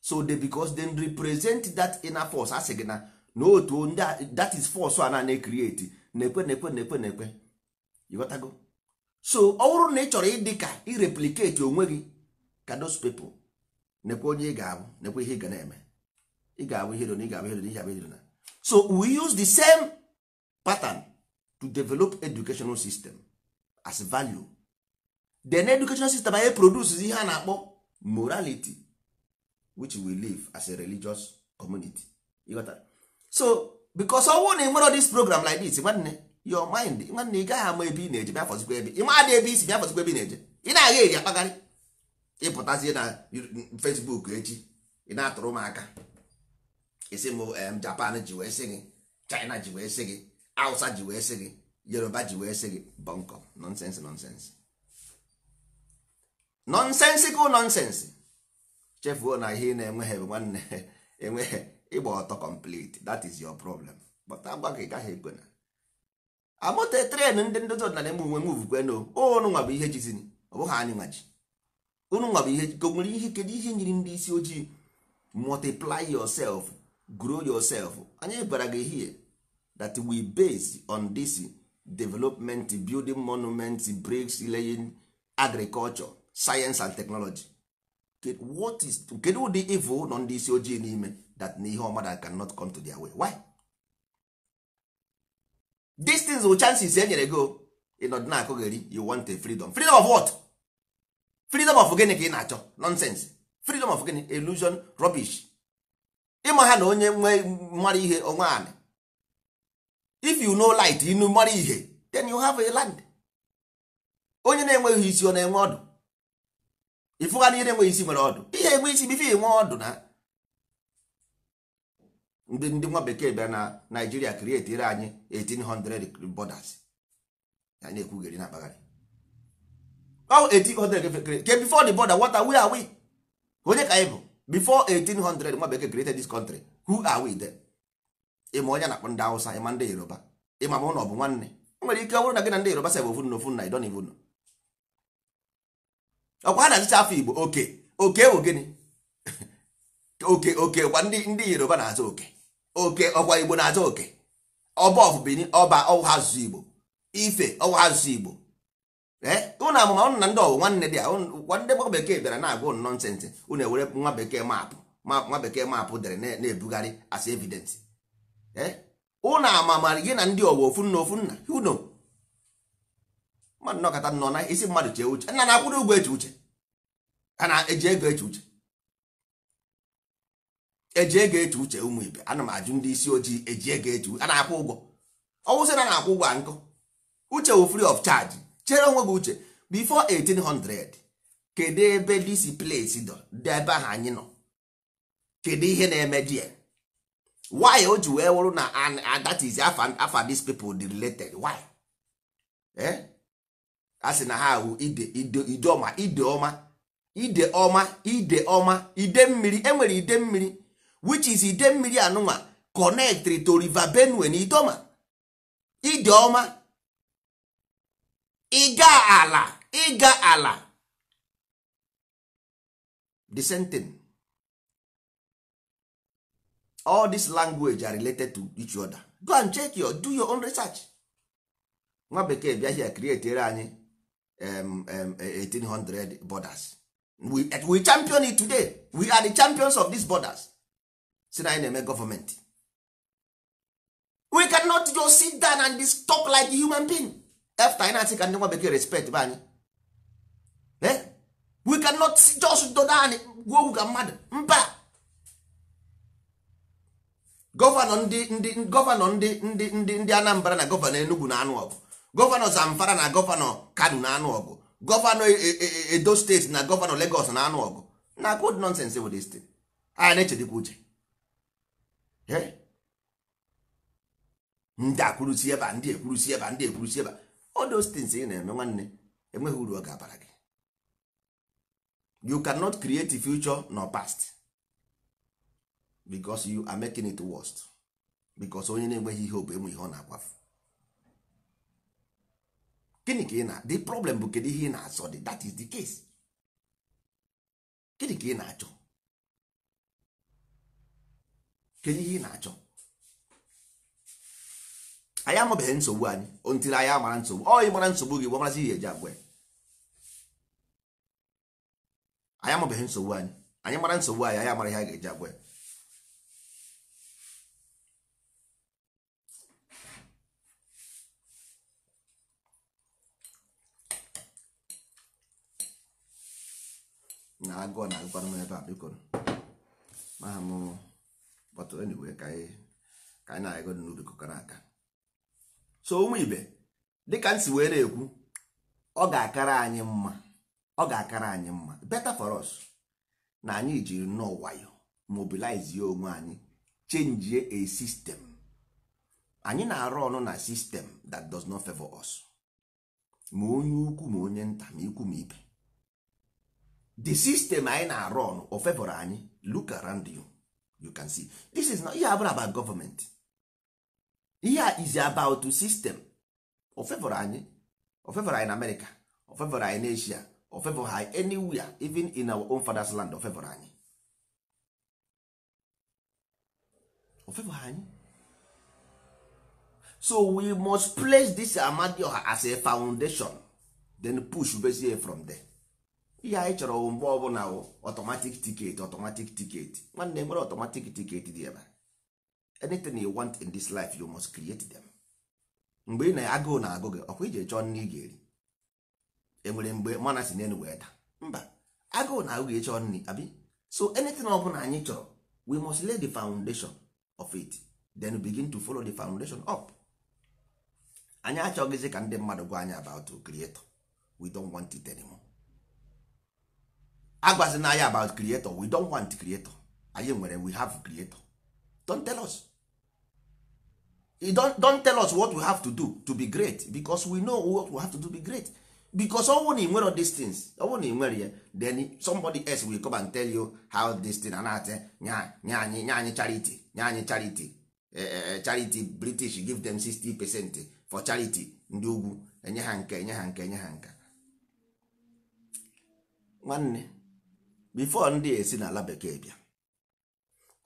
so they because they represent that inner force asị gị na na otu ndị that is force a na create na-ekwe na-ekwe na-ekwe na-ekwe ịghọtago so ọ bụrụ na ị chọrọ ịdị ka ireplicate onwe gị ka those people nekwe onye ị ga-abụ nekwe ihe ị ga na-eme ị ga-abụ ihe na ị ga-abụ ihe na ị ga-abụ ihe so we use the same pattern to develop educational system as value then education system anyị produces ihe a na-akpọ morality which we live as a religious community so because ọnwụ na enwero this program like this nwanne your mind nwanne ị gaghị ama ebe ị na-eje bịa fọzikwa ebe ị maadị ebe isi bịa fọzikwa ebe ị na-eje ị na-agha eri akpagharị ịpụtazie na Facebook echi ị na-atụrụ m aka isi m Japan ji wee sị gị China ji wee sị gị Hausa ji wee sị gị Yoruba ji wee sị gị bọnkọ nonsense nonsense nọnsensical nonsense chefuo na ihe ị na-enweghị bụ nwanne enweghị ịgba ọtọ complete that is your problem but agba gị gaghị ekwe na amụta tren ndị ndozi ọdịnala eme onwe move kweno ụnụ nwa bụ ihe jizini ọ bụghị anyị nwa ji ụnụ nwa bụ ihe jiko nwere ihe kedu ihe nyiri ndị isi ojii multiply yourself grow yourself anyị gwara gị here that we base on this development building monument bricks laying agriculture science and technology what is kedu ụdị evil nọ ndị isi ojii n'ime that na ihe ọma that cannot come to their way why these things wụ chances e nyere go ịnọdụ na-akụ gị you want a freedom freedom of what freedom of gịnị ka ị na-achọ nonsense freedom of gịnị illusion rubbish ịma ha na onye nwe mara ihe onwe anị if you know light inu mara ihe then you have a land onye na-enweghị isi ọ na-enwe ọdụ ịfụgha na ihe nwe isi nwere ọdụ ihe enwe isi bife enwe ọdụ na ndị ndị nwa bekee bịara na naijiria krietiere anyị 1800 bọdas anyị ekwugheri na akpagharị ọ 1800 ke before the border what are we are we onye ka anyị bụ before 1800 nwa bekee created this country who are we then ịma onye na-akpọ ndị awụsa ịma ndị Yoruba ịma ma ụlọ bụ nwanne o nwere ike ọ bụrụ na gị na ndị Yoruba sebe ofu na ofu na idon nọ. ọkwa ha na-azụcha afọ igbo oke oke bụ gịnị oke oke kwa ndị ndị yoruba na-azụ oke oke ọkwa igbo na-azụ oke ọba ọfụbini ọba ọwụ asụsụ igbo ife ọwụ asụsụ igbo ụnụ eh? amụma ụnụ na ndị ọwụ nwanne dị a ndị gba bekee bịara na-agwa ụnụ nọnsensị ụnụ ewere nwa bekee maapụ nwa bekee maapụ dere na-ebugharị as evidence ụnụ eh? amamara gị na ndị ọwụ ofu nna ofu nna mmadụ nọkọta nọ na isi mmadụ chee uche nna na-akwụrụ ụgwọ eche uche a na-eji ego eche uche eji ego eche uche ụmụ ibe ana m ajụ ndị isi ojii eji ego eche uche a na-akwụ ụgwọ ọwụsị na na-akwụ ụgwọ nkụ uche wụ free of charge chere onwe gị uche before 1800 kedu ebe disi place dọ dị ebe ahụ anyị nọ kedu ihe na-eme di ya why o ji wee wụrụ na ah, that is afa these people dị related why eh? a sị na ha ahụ ide ide ọma ide ọma ide ọma ide mmiri enwere ide mmiri which is ide mmiri anụnwa connect to river benue na idoma ide ọma ịga ala ịga ala the same thing all this language are related to each other go and check your do your own research nwa bekee bịa here anyị um, 1800 um, eh, borders we, we champion it today we are the champions of these borders si na anyị na-eme gọọmenti we cannot just sit down and just talk like human being after anyị na-asị ka ndị nwa bekee respect be anyị eh? we cannot just do dani gwa okwu mmadụ mba gọvanọ ndị ndị gọvanọ ndị ndị ndị Anambra na gọvanọ Enugu na anụ ọgụ gọvanọ zamfara na gọvanọ kano na-anụ ọgụ gọvanọ e- e- e- edo steeti na gọvanọ legos na-anụ ọgụ na good nonsens bụ this thing na-echedekwa uche ndị akwụrụsi ebe ndị ekwurusi ebe a ndị ekwurusi ebe a all those things ị na-eme nwanne enweghị uru ọ ga-abara gị you cannot create future nor past because you are making it worst because onye na-enweghị ihe ọ enwe ihe ọ na-akwafu gịnị ka ị na the problem bụ kedu ihe ị na-achọ dị that is the case gịnị ka ị na-achọ ihe na-achọ anyị amabeghị nsogbu anyị ontiri anyị amara nsogbu ọ nsogbu gị gbamarazi ihe nsogbu anyị anyị mara nsogbu anyị anyị amara ihe a ga-eji agwa na agụọ na agụkwa m ebe a biko maha m enyiwe ka anyị na-agụ n'ubi kọkara aka so ụmụ ibe dịka nsi were ekwu ọ ga-akara anyị mma ọ ga-akara anyị mma na anyị jiri nnọọ wayo mobilizie onwe anyị change a sistem anyị na-arụ ọnụ na sistem that does not favor us ma onye ukwu ma onye nta ma ikwu the system anyị na-arụ ọnụ o anyị look around you you can see this is not ihe abụrụ about government ihe is about system o anyị o anyị na America o anyị na Asia o fevọrọ anyị anywhere even in our own father's land o anyị o anyị so we must place this Amadioha as a foundation then push bezie from there ihe anyị chọrọ mgbe ọbụla ọtọmatik tiketi ọtọmatik tiketi nwanne e nwere ọtọmatik tiketi dị ebe anything you want in this life you must create them mgbe ị na agụ na-agụ gị ọkwa ije chọọ nne ị ga-eri enwere mgbe mana si n'elu wee daa mba agụụ na agụ gị ịchọ nri abi so anything ọbụla anyị chọrọ we must lay the foundation of it then begin to follow the foundation up anyị achọghịzi ka ndị mmadụ gwa anyị about creator we don't want it anymore. na anya about creator we don want creator anyị nwere we have creator don't tell us don't, don't tell us what we have to do to be great because we know what we have to do to be great because ọnwụ na inwere these things ọnwụ na inwere ya then somebody else will come and tell you how this thing and eh, nya anyị nye anyị charity nye anyị charity eh, eh, charity british give them 60 percent for charity ndị ugwu enye ha nke enye ha nke enye ha nke nwanne bifo ndị esi n'ala bekee bịa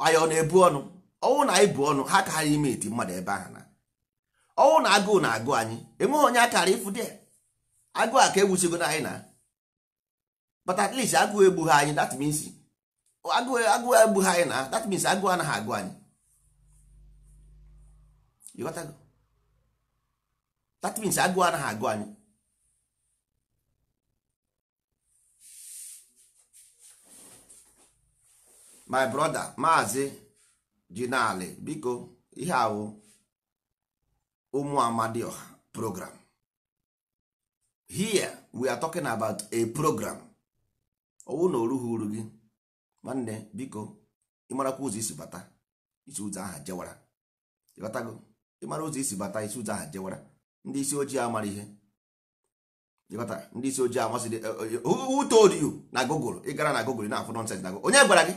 anyị ọ na-ebu ọnụ ọnwụ na anyị bụ ọnụ ha ka ha ime iti mmadụ ebe ahụ na ọnwụ na agụụ na-agụ anyị enweghị onye akara ịfụ dị agụụ a ka egbuchigo na anyị na but at least agụụ egbughi anyị that means agụụ egbughi anyị na that means agụụ anaghị agụ anyị that agụụ anaghị agụ anyị my brother maazị jinali biko ihe awụ ụmụ amadioha program here we are talking about a program owu na orughị uru gị nwanne biko ịmarakwa ụzọ isi bata isi ụzọ aha jewara ịghọtago ịmara ụzọ isi bata isi ụzọ aha jewara ndị isi ojii amara ihe ịghọta ndị isi ojii ihe eh, eh, eh, who told you na google ị gara na google na-afụ nonsense na onye gwara gị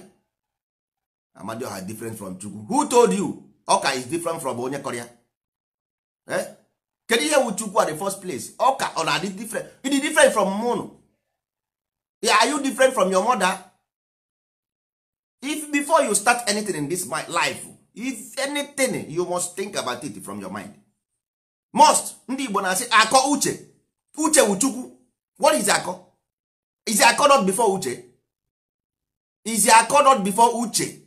amadioha different from chukwu who told you ọka is different from onye kọrịa eh? kedu ihe wu chukwu at the first place ọka ọ na-adị different You dey different from mụnụ are you different from your mother if before you start anything in this life if anything you must think about it from your mind must ndị igbo na-asị akọ uche uche wu chukwu what is akọ is akọ not before uche is akọ not before uche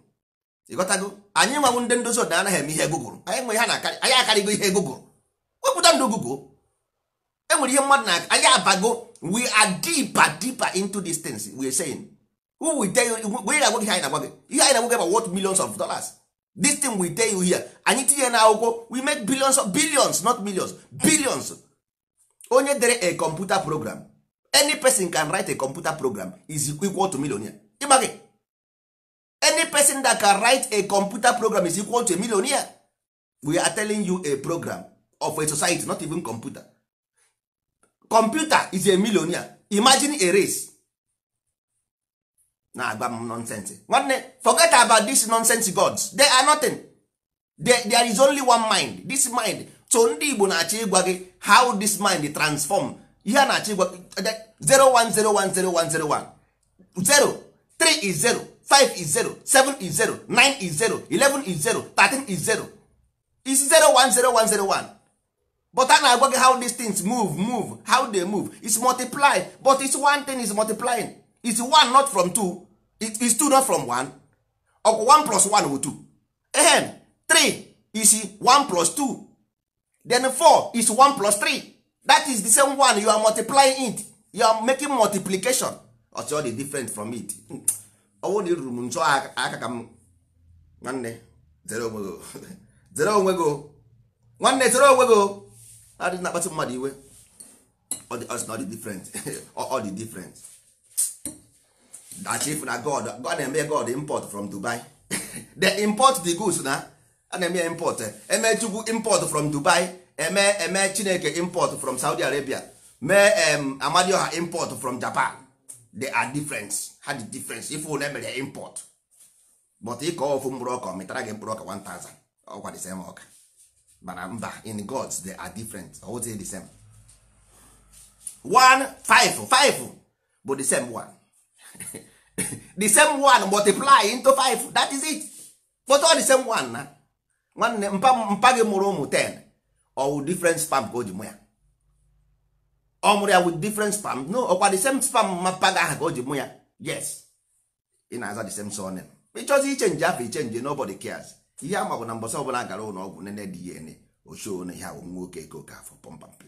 ịghọtago anyị nwanwụ ndị ndozi ọdịnala anaghị eme ihe gụgụrụ anyị nwe ha na anyị akarịgo ihe gụgụrụ wepụta ndụ gụgụ enwere ihe mmadụ na anyị abago we are deeper deeper into these things we are saying who we tell you we na agwa gị anyị na ihe anyị na-agwa gị about what millions of dollars this thing we tell you here anyị tinye na akwụkwọ we make billions of billions not millions billions onye dere a computer program any person can write a computer program is equal to millionaire ịgba gị any person that can write a computer program is equal to a millionaire we are telling you a program of a society not even computer computer is a millionaire imagine a race na agba m nonsense nwanne forget about this nonsense gods they are nothing there, there is only one mind this mind so ndị igbo na-achọ ịgwa gị how this mind transform ihe a na-achọ ịgwa 01010101 0 3 is 0 5 is 0 7 is 0 9 is 0 11 is 0 13 is 0 is 0 1 0 1 0 1 but a na-agwa how these things move move how they move is multiply but it's one thing is multiplying is one not from two is two not from one 1 plus one bụ 2 ehem 3 is one plus two then 4 is one plus three that is the same one you are multiplying it you are making multiplication ọchọ oh, dị different from it hmm. ọnwụ na iruru m nchọ aka ka m nwanne zere onwe gị zere onwe nwanne zere onwe gị adị na-akpata mmadụ iwe ọ dị different ọ dị different that if na god god na-eme god import from dubai the import the goods na a na-eme ya import eme chukwu import from dubai eme eme chineke import from saudi arabia mee amadioha import from japan they are different ha dị difference ife ụlọ emere import but ịkọ ofu mkpụrụ ọka metara gị mkpụrụ ọka 1000 ọkwa the same ọka mana mba in gods they are different always the same one five five bụ the same one the same one multiply into five that is it but all the same one na nwanne mpa gị mụrụ ụmụ 10 ọwụ different spam ka o ji mụ ya ọ mụrụ ya with different spam no ọkwa the same spam mapa ahụ aha ka o ji mụ ya yes ị na-aza the same surname ịchọzi nje afọ nje nobody cares ihe ama bụ na mbọsị ọbụla gara ụlọ ọgwụ nene DNA ochie na ihe onye nwoke ka oke afọ pọmpample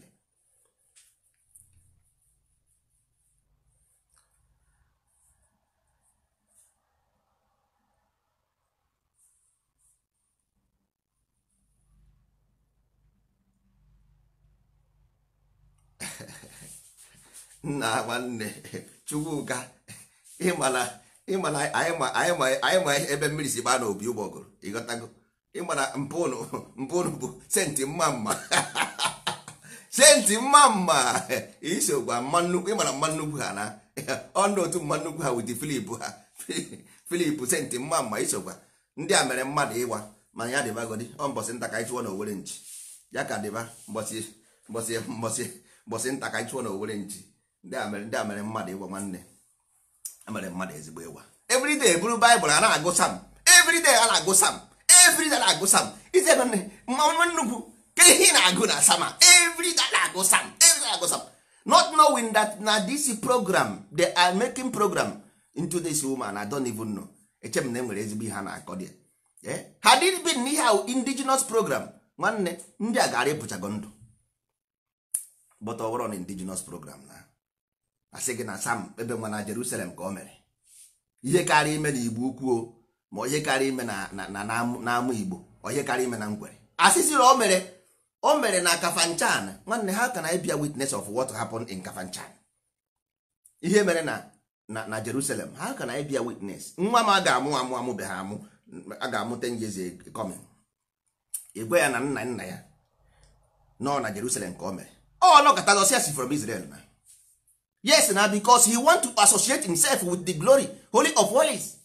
nna nwanne chukwuka ịmana anyị ma ebe mmiri si gbaa n'obi ụgbọgụrụ ịghọtago ịmana mpụnụ mpụnụ bụ senti mma mma senti mma mma iso gwa mma nnukwu ịmana mma nnukwu ha na ọnụ otu mma nnukwu ha wụdị filip ha filip senti mma mma isogwa ndị a mere mmadụ ịwa mana ya dịbagodi ọ mbọsị nta ka anyị n'owere na ya ka dịba mbọsị mbọsị mbọsị mbọsị nta ka anyị n'owere na ndị a mmadụ ịgwa nwanne emere mmadụ ezigbo ịwa. everyday bụrụ baịbụl a na-agụ sam everyday a na-agụ sam everyday na-agụ sam ite nwanne mmanụ nnukwu ka ihe na-agụ na sama everyday na-agụ sam everyday na-agụ sam not knowing that na this program they are making program into this woman I don't even know echem na enwere ezigbo ihe a na-akọ dị eh? ha dịrị bi n'ihe ahụ indigenous program nwanne ndị a gara ịpụchago ndụ but ọ na indigenous program na asị gị na sam ebe nwa na jerusalem ka o mere ihe karịa ime na igbo ukwuo ma onye karịa ime na amụ igbo onye karịa ime na ngwere asịsị na o mere o mere na kafanchan nwanne ha ka na ịbịa witness of what happened in kafanchan ihe mere na na jerusalem ha ka na ịbịa witness nwa m a ga-amụ amụ be ha amụ a ga-amụta njezi kọmin igwe ya na nna nna ya nọ na jerusalem ka o mere ọ nọkọta zọsi si from israel na yes na bicos he want to associate himself with the glory holy of holies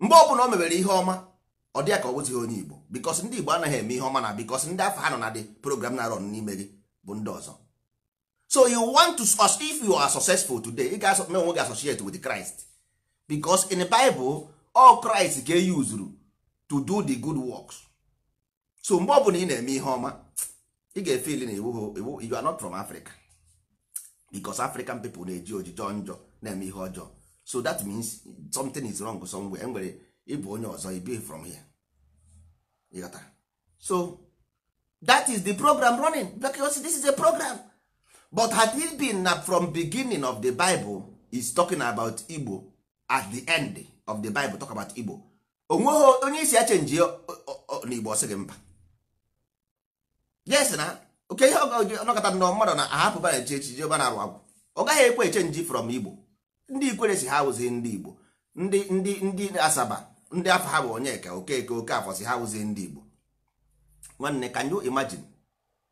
mgbe ọbụla o mebere ihe ọma ọ dịya ka ọ bụzighị onye igbo because ndị igbo anaghị eme ihe ọma na because ndị afọ ha nọ na dị program na-arọn n'ime gị bụ ndị ọzọ so you want to if you are successful today ị ga me onwe gị associate with Christ because in the Bible all Christ ga e usuru to do the good works so mgbe ọbụla ị na-eme ihe ọma ị ga-efeel na you are not from Africa because african people na-eji ojijọ njọ na-eme ihe ọjọọ so that means something is wrong somewhere enwere ịbụ onye ọzọ be from here ịghọta so that is the program running because this is a program but had it been na from beginning of the bible is talking about igbo at the end of the bible talk about igbo onweghị onye isi achenji n'igbo ọ gị mba yes na oke ihe ọnọkọta nnọọ mmadụ na ahapụba na echi echiche ọba na-arụ agwụ ọ gaghị ekwe eche nji from igbo ndị ikwere si ha wụzie ndị igbo ndị ndị ndị asaba ndị afọ ha bụ onyeka okeke oke afọ si ha wụzie ndị igbo nwanne can you imagine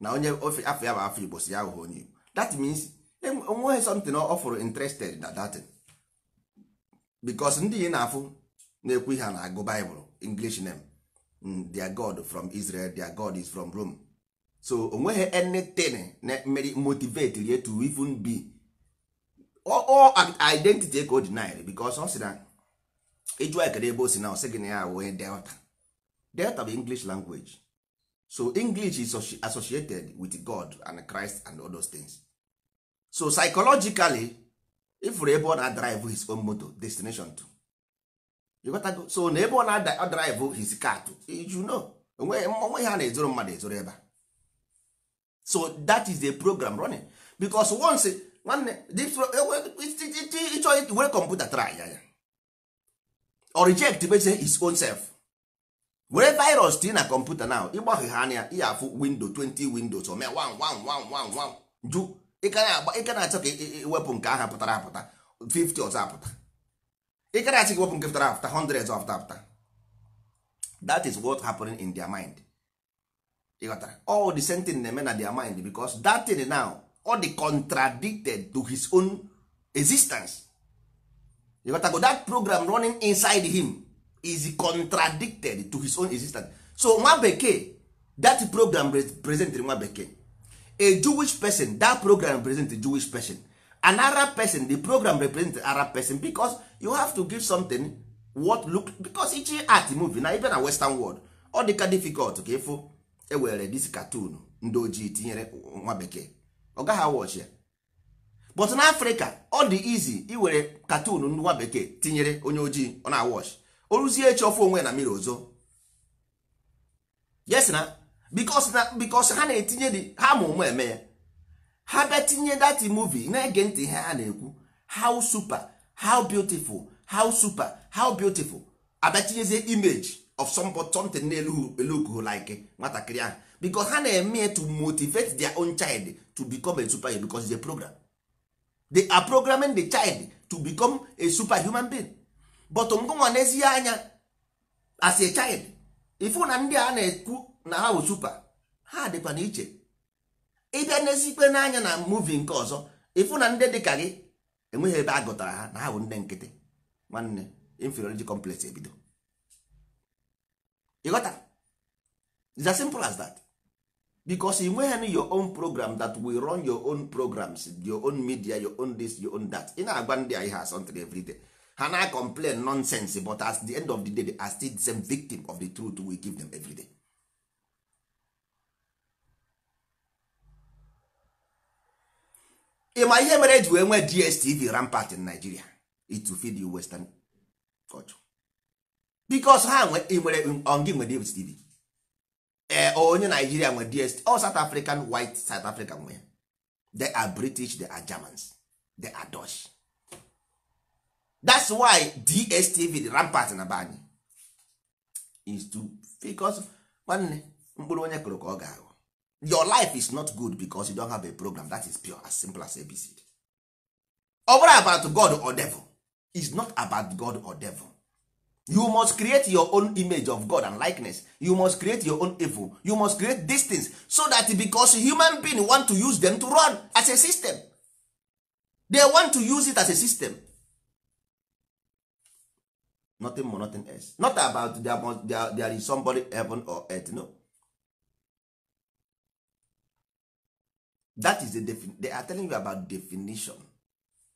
na onye ofe afọ ya bụ afọ igbo si ya wụghị onye igbo that means e, onweghị something ọfụrụ fụrụ interested na datin bikos ndị yi na-afụ na-ekwu ihe na-agụ baịbụl english name mm, their god from israel their god is from rome so onweghị anything na mmeri motivate rie to even be all identity ka o deny because ọ sị na ịjụ ekere ebe o si na ọ sị gị na ya wee delta delta bụ english language so english is associated with god and christ and all those things so psychologically if ebe ọ na drive his own moto destination to you got so na ebe ọ na drive his car to you know onweghị ha na-ezoro mmadụ ezoro ebe a so that is the program running because once nwanne ịchọ were kọmputa try ya or reject base his own self were virus tinye na kọmputa now ịgbaghe e e e ha anya ihe afụ windo 20 windows ome jụ ịka na-achọ ka iwepụ nke aha pụtara apụta 50 ọzọ apụta ịka na-achọ ka iwepụ nke 100 ọzọ that is what happening in their mind ịghọtara all the same thing na-eme na their mind because that thing now all the contradicted to his own existence ịghọtago that program running inside him is contradicted to his own existence so nwa bekee that program represent nwa bekee a jewish person that program represent a jewish person an arab person the program represent arab person because you have to give something what look because ichi art movie na even na western world ọ dịka difficult ka ịfụ ewere dis katun ndị ojii tinyere nwa bekee ọ gaghị awọchi ya but na afrịka ọ dị izi iwere katun ndị nwa bekee tinyere onye ojii ọ na-awọchi o ruzie echi ofe onwe na mmiri ozo yes na because na because ha na-etinye dị ha ma ụmụ eme ya ha bịa dati muvi na-ege ntị ihe ha na-ekwu how super how beautiful how super how beautiful abịa tinyezie imeji of something na-eluku like eh, nwatakịrị ahụ because ha na-eme to motivate their own child to become a superhero because it's a program they are programming the child to become a human being but ngụnwa n'ezie anya as a child ifu na ndị a na-ekwu na ha bụ super ha dịkwa na iche ịbịa n'ezikpe n'anya na muvi nke ọzọ ifu na ndị dịka gị enweghị ebe a gụtara ha na ha bụ ndị nkịtị nwanne inferiority complex ebido ịghọta it's as simple as that because you nweghị your own program that will run your own programs your own media your own this your own that ị na-agba ndị a ihe asọntị everyday ha na complain nonsense but at the end of the day they are still the same victim of the truth we give them everyday. Ị ma ihe mere eji wee nwee DSTV rampart in Nigeria it to feed you western culture. bikos ha nwere ongi nwe dstv ee eh, onye naijiria nwe dst all south african white south african nwe they are british they are germans they are dutch that's why dstv the rampart na be anyị is to bicos nwanne mkpụrụ onye kụrụ ka ọ ga-aghọ your life is not good because you don have a program that is pure as simple as abcd ọ bụrụ about god or devil is not about god or devil you must create your own image of god and likeness you must create your own evil you must create these things so that because human being want to use them to run as a system they want to use it as a system nothing more nothing else not about there, must, there, there is somebody heaven or earth no that is the they are telling you about definition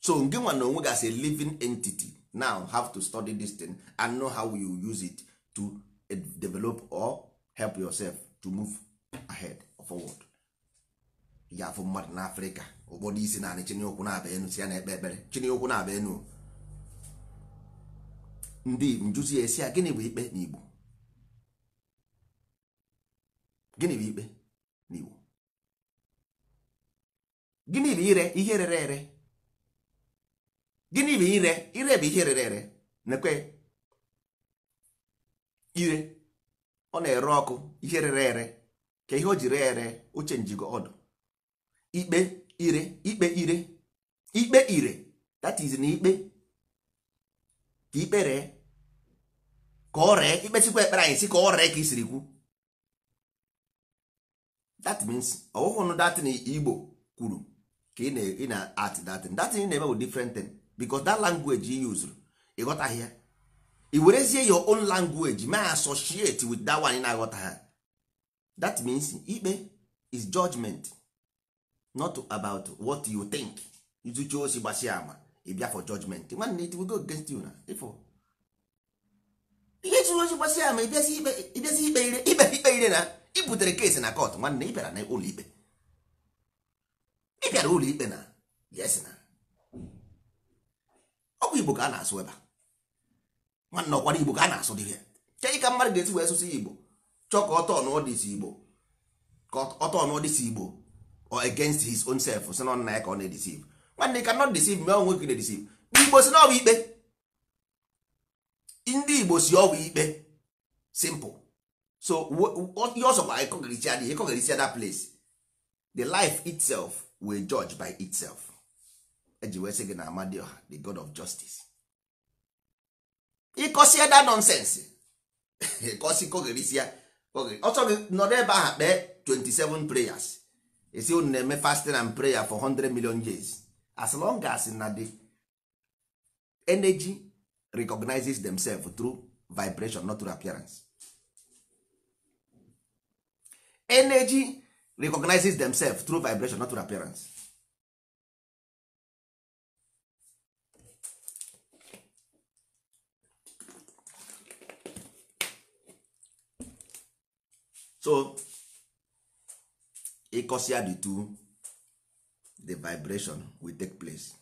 so nge nwa na onwe as a living entity now have to study this thing and know how you use it to eh, develop or help yourself to move ahead forward ya afụ mmadụ na afrịka ụfọdụ isi naanị chiniokwu na-aba enu si ya na-ekpe ekpere chiniokwu na-aba enu ndị njuzi esi a gịnị bụ ikpe n'igbo gịnị bụ ikpe n'igbo gịnị bụ ire ihe rere ere gịnị bụ ire ire bụ ihe rere ere nekwe ire ọ na-ere ọkụ ihe rere ere ka ihe o ji ree ere oche njigo ọdụ ikpe ire ikpe ire ikpe ire that is na ikpe ka ikpe ree ka ọ ree ikpe sikwa ekpere anyị si ka ọ ree ka isiri kwu that means ọwụhụ nụ datin igbo kwuru ka ị na-at datin datin na-eme bụ different thing because that language you use ịghọtaghị ya i werezie your own language ma associate with that one na-aghọta ha that means ikpe is judgment not about what you think izuchi osi gbasia ama ịbịa e for judgment nwanne it will go against you na ifo ihe chụrụ osi gbasia ama ịbịazi e ikpe e ire ikpe ikpe ire na ibutere kesi na court nwanne ịbịara na ụlọ ikpe ịbịara ụlọ ikpe na yes na ọkwa igbo ka a na-asụ ebe a nwanne ọkwara igbo ka a na-asụ dị ya kedu ka mmadụ ga-esi wee sụsụ igbo chọọ ka ọtọ n'ọdịsi igbo ka ọtọ n'ọdịsi igbo or against his own self si na nna ya ka ọ na-edisive nwanne ka not deceive me ọnwụ nwoke na-edisive igbo si na ikpe ndị igbo si ọbụ ikpe simple so ihe ọsọkwa ịkọgarisi adịghị ịkọgarisi ada place the life itself will judge by itself eji wee sị gị na amadioha the god of justice ịkọsie da nonsens ịkọsi kogherisịa ọchọ gị nọrọ ebe ahụ kpee 27 prayers esi unu na-eme fasting and prayer for 100 million years as long as na the energy recognizes themselves through vibration not through appearance energy recognizes themselves through vibration not through appearance so ịkọsi the two the vibration will take place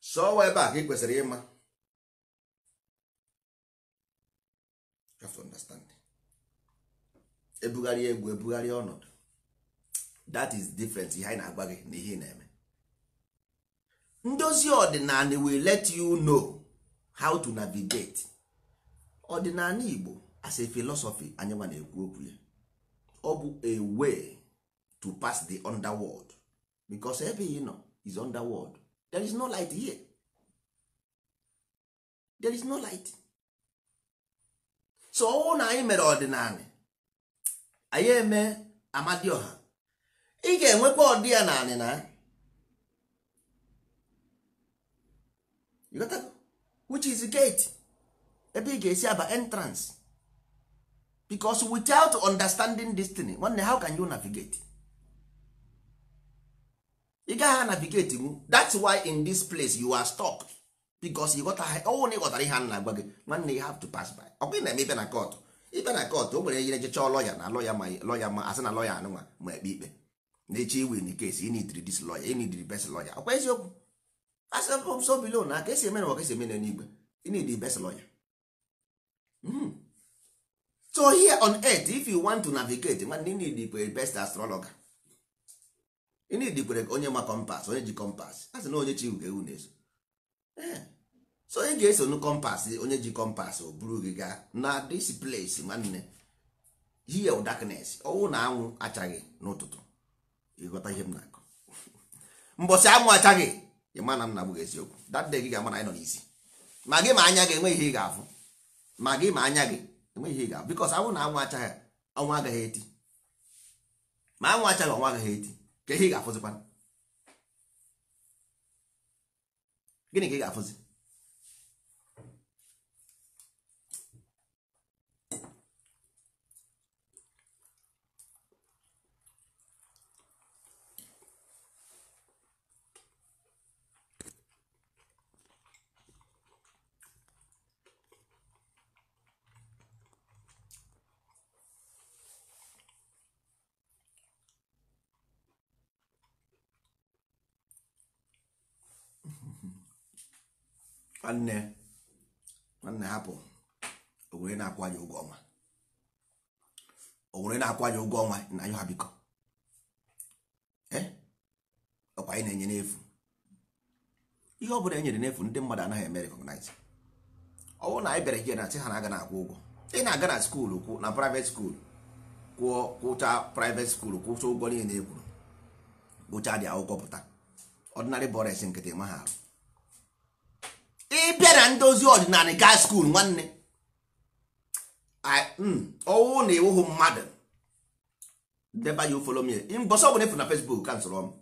so ebe a ka ị kwesịrị ịma ebugharị egwu ebugharị ọnọdụ that is different ihe anyị na-agwa gị na ihe na-eme ndozi ọdịnala will let you know how to navigate ọdịnala igbo as a philosophy anyị ma na-ekwu okwu ya ọ bụ a way to pass the underworld because ebe ị nọ is underworld there is no light here there is no light so ọnwụ na anyị mere ọdịnala anyị eme amadioha ị ga-enwekwa ọdị ya na which is gate ebe ị ga-esi aba entrance because without understanding destiny nwanne how can you navigate ị gaghị anavigate mu that's why in this place you are stuck because you oh, ghọtara ọnwụ na ịghọtara ihe a na-agwa gị nwanne you have to pass by ọ bụ na eme ibe na kọtụ ibe na kọtụ o nwere ihe ejecha lọya na lọya ma lọya ma asị na lọya anụnwa ma ekpe ikpe na-eche iwe in case you need this lawyer you need the best lawyer ọkwa eziokwu asọ so below na aka esi eme na ka esi eme na n'igwe you best lawyer mm. so here on earth if you want to navigate nwanne you need the best astrologer you kwere onye ma kompas onye ji kompas asị na onye chiwu ugo ewu na-eso eh. so onye ga-eso nu kompas onye ji kompas o buru gị gaa na this place nwanne here of darkness ọnwụ na anwụ achaghị n'ụtụtụ ịghọta ihe m na-akọ mbọsị anwụ achaghị ị ma na m na-abụghị eziokwu that day gị ga-ama na anyị nọ n'isi ma gị ma anya gị enwe ihe ị ga-afụ ma gị ma anya gị enwe ihe ị ga-afụ bikos anwụ na anwụ achaghị ọnwa agaghị eti ma anwụ achaghị ọnwa agaghị eti ka ihe ị ga-afụzikwa gịnị ka ị ga-afụzi nwanne nwanne hapụ owere na-akwụ ya ụgwọ ọnwa owere na-akwụ ya ụgwọ ọnwa na ayụ ha biko e? ọkwa anyị na-enye n'efu ihe ọ bụla enyere n'efu ndị mmadụ anaghị eme recognize ọ bụrụ na anyị bịara gị na sị ha na-aga na akwụ ụgwọ ị na-aga na skuulu kwụ na private skuulu kwụọ kwụcha private skuulu kwụcha ụgwọ niile na e ekwuru kpụcha dị akwụkwọ pụta ọdịnarị bọres nkịtị ma ha arụ ịbịa na ndozi ọdịnala gaa skuul nwanne hmm, ọwụ na ewuhu mmadụ deba ya ufolo mie mbọsọ na ịfụrụ na fesbuk ka nsọrọ m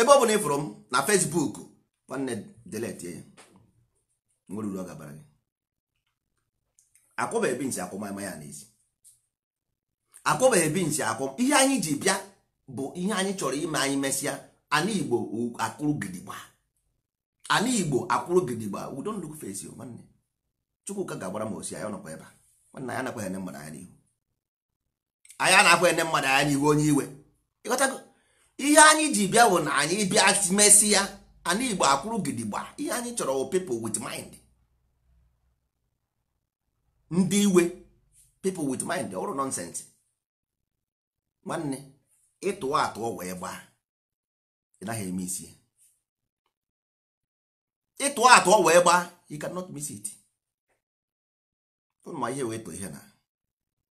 ebe ọ bụla ịfụrụ m na fesbuk nwanne deletie ya nwere uru ọ gabara gị akwụbeghị binsi akwụ ma ya n'ezi akwụbeghị binsi akwụ ihe anyị ji bịa bụ ihe anyị chọrọ ime anyị mesịa ana igbo akụrụ gidigba ala igbo akwụrụ gidigba we don't look face nwanne chukwuka ga-agbara m osi anya ọnọkwa ebe a nwanne anyị anakwaghị ene mmadụ anya n'ihu anyị anakwaghị ene mmadụ anya n'ihu onye iwe ịghọtago ihe anyị ji bịa bụ na anyị bịa mesi ya ala igbo akwụrụ gidigba ihe anyị chọrọ wụ people with mind ndị iwe people with mind ọrụ nonsense nwanne ịtụwa atụ wee gbaa ị naghị eme isi ya ịtụ atụ ọ wee gbaa you cannot miss it ma ihe wee ihe na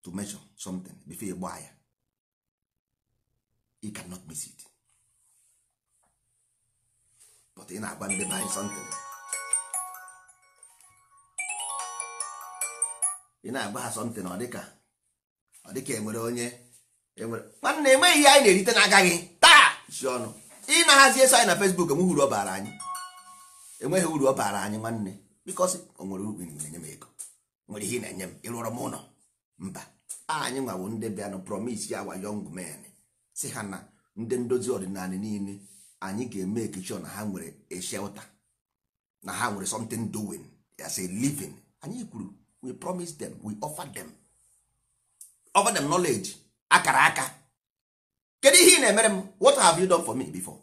to measure something before ị gbaa ya you cannot miss it but ị na-agba ndị banyị something ị na-agba ha something ọ dịka ọ dịka enwere onye enwere mana na-enweghị ihe anyị na-erite na-agaghị taa si ọnụ ị na-ahazi eso anyị na Facebook m hụrụ ọ bara anyị enweghị uru ọ baara anyị nwanne bikọsi o nwere uru na-enye m ego nwere ihe na-enye m ịrụọrọ m ụlọ mba anyị nwawo ndị bịanụ promis ya wa young men si ha na ndị ndozi ọdịnala niile anyị ga-eme ekichọ na ha nwere a shelter na ha nwere something doing as a living anyị kwuru we promise them we offer them offer them knowledge akara aka kedu ihe ị na-emere m what have you done for me before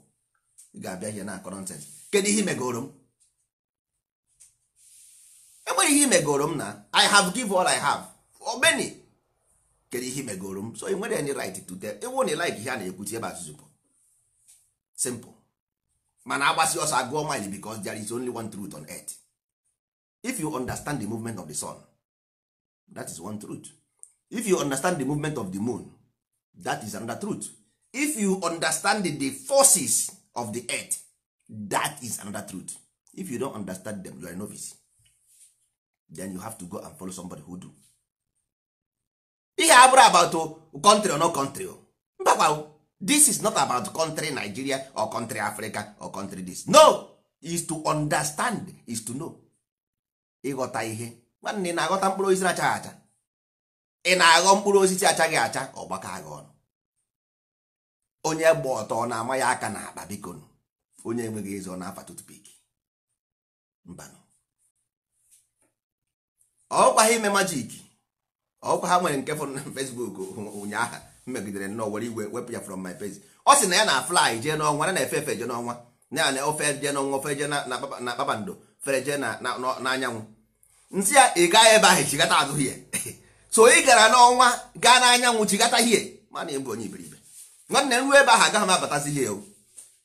ị ga-abịa ihe na akọrọ nonsense kedu ihe megoro m enwere ihe imegoro m na i have give all i have omeni kedu ihe imegoro m so ị nwere any right to tell ịwụ na like ihe a na-ekwuti ebe azụzụ bụ simple mana agbasi ọsọ agụọ mile becos there is only one truth on earth if you understand the movement of the sun that is one truth if you understand the movement of the moon that is another truth if you understand the forces of the earth that is another truth if you don understand them you are a novice then you have to go and follow somebody who do ihe abụrụ about country or no country mbakwa this is not about country nigeria or country africa or country this no is to understand is to know ịghọta ihe nwanne ị na-aghọta mkpụrụ osisi achaghị acha ị na-aghọ mkpụrụ osisi achaghị acha ọgbakọ agha ọnụ onye gba ọtọ ọ na-ama ya aka na akpa biko onye enweghị eze ọ na-afa tutupik mbanụ ọkwa ha ime majik ọkwa ha nwere nke fọrọ na Facebook ụnyaahụ megidere nnọọ were iwe wepụ ya from my page ọ sị na ya na fly jee n'ọnwa na na-efe efe jee n'ọnwa na na ofe jee n'ọnwa ofe jee na kpakpando fere jee n'anyanwụ nsị ya ị gaghị ebe ahụ chigata azụ hie so ị gara n'ọnwa gaa n'anyanwụ chigata hie mana ịbụ onye iberibe nwanne nruo ebe ahụ agaghị m abatazi ihe o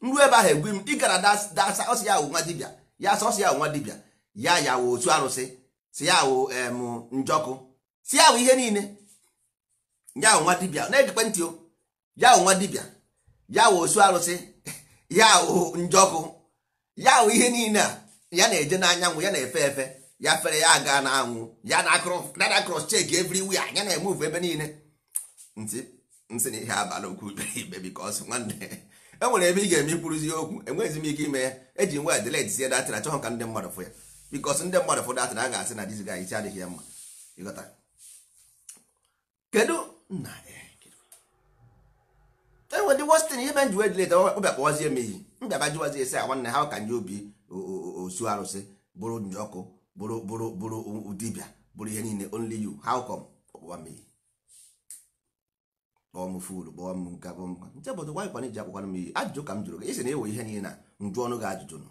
nruo ebe ahụ egwu m ị gara dasa ọsị ya awụ nwa dibịa ya sọsị ya awụ nwa dibịa ya ya wụ otu arụsị si ya wụ njọkụ si ya wụ ihe niile ya wụ nwa dibịa na-ejikwe ntị o ya wụ nwa dibịa ya wụ osu arụsị ya wụ njọkụ ya wụ ihe niile a ya na-eje n'anyanwụ ya na-efe efe ya fere ya aga na anwụ ya na cross check everywhere ya na-emuve ebe niile ntị nsị na ihe abalị okwu ibe because nwanne enwere ebe ị ga-eme ikwuruzi okwu enweghịzi m ike ime ya eji nwa delete sie datịra chọọ ka ndị mmadụ fụ ya bikos ndị mmadụ ụfọdụ atịra a ga-asị na dizga isi adịghị ya mma ịghọta kedu nna enwe e ndị westin ihe menji wee dileta ọbịa kpọwazie m iyi mbịaba jiwazi esi a ah, nwanne ha ka nye obi osu arụsị bụrụ ọkụ bụrụ bụrụ bụrụ dibịa bụrụ ihe niile only you how come ọkpụwa m iyi kpọọ m fulu kpọọ m nka kpọọ m nka nche bụ wanyị kwana m e ihe niile na njụ gị ajụjụ nụ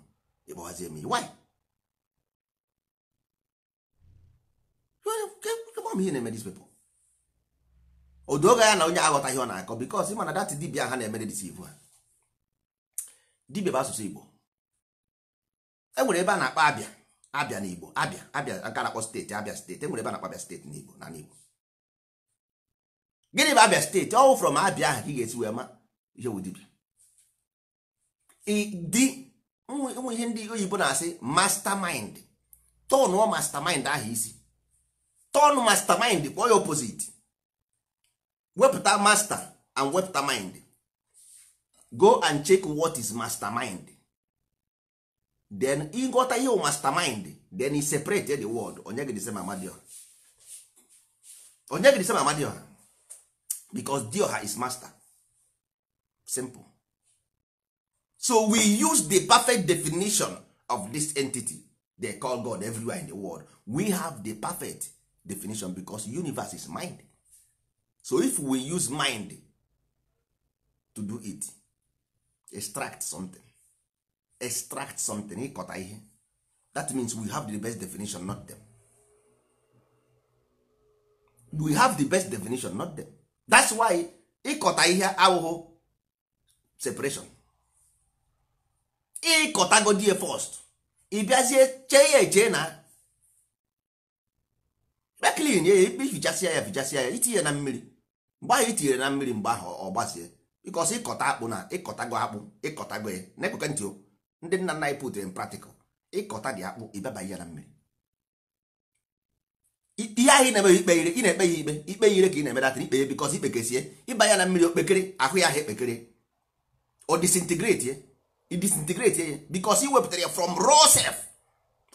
m m ihe na-eme dis people odoga ya na onye aghọtaghị ọ na-akọ because ịma na dat dibia ha na-emere disivu ha dibia bụ asụsụ igbo e nwere ebe a na-akpọ abịa abịa na igbo abịa abịa nke na-akpọ steeti abịa steeti e nwere ebe a na-akpọ abịa steeti na igbo na igbo gịnị bụ abịa steeti ọwụ from abịa ahụ ka ị ga-esi wee ma ihe wụ dibia dị ụmụ ihe ndị oyibo na-asị mastermind tọnụọ mastermind ahụ isi turn mastermind kpọọ ya opposite wepụta master and wepụta mind go and check what is mastermind then ịghọta ihe mastermind then he separate the word onye gị ma amadioha onye gị ma amadioha because dioha is master simple so we use the perfect definition of this entity they call god everywhere in the world we have the perfect definition because universe is mind so if we use mind to do it extract something extract something ịkọta ihe that means we have the best definition not them we have the best definition not them that's why ịkọta ihe awụhụ separation ịkọtagodi first ị first. chee ya eche na be ya ikpe ifichasịa ya fichasịa ya itinye na mmiri mgbe ahụ itinyere na mmiri mgbe ahụ ọ gbazie bikos ịkọta akpụ na ịkọtago akpụ ịkọtago ya eh, na-ekweka ntị ndị nna nna anyị pụtere praktikal ịkọta dị akpụ ịbabaghị ya na mmiri ihe ahụ ị na-eme ikpe ire ị na-ekpe ya ikpe ikpe ire ka ị na-emedata ikpe ya bikos ikpekesie ịba ya na mmiri okpekere ahụ ya ahụ ekpekere ọ disintegrate eh, disintegrate ya eh, bikos i ya from raw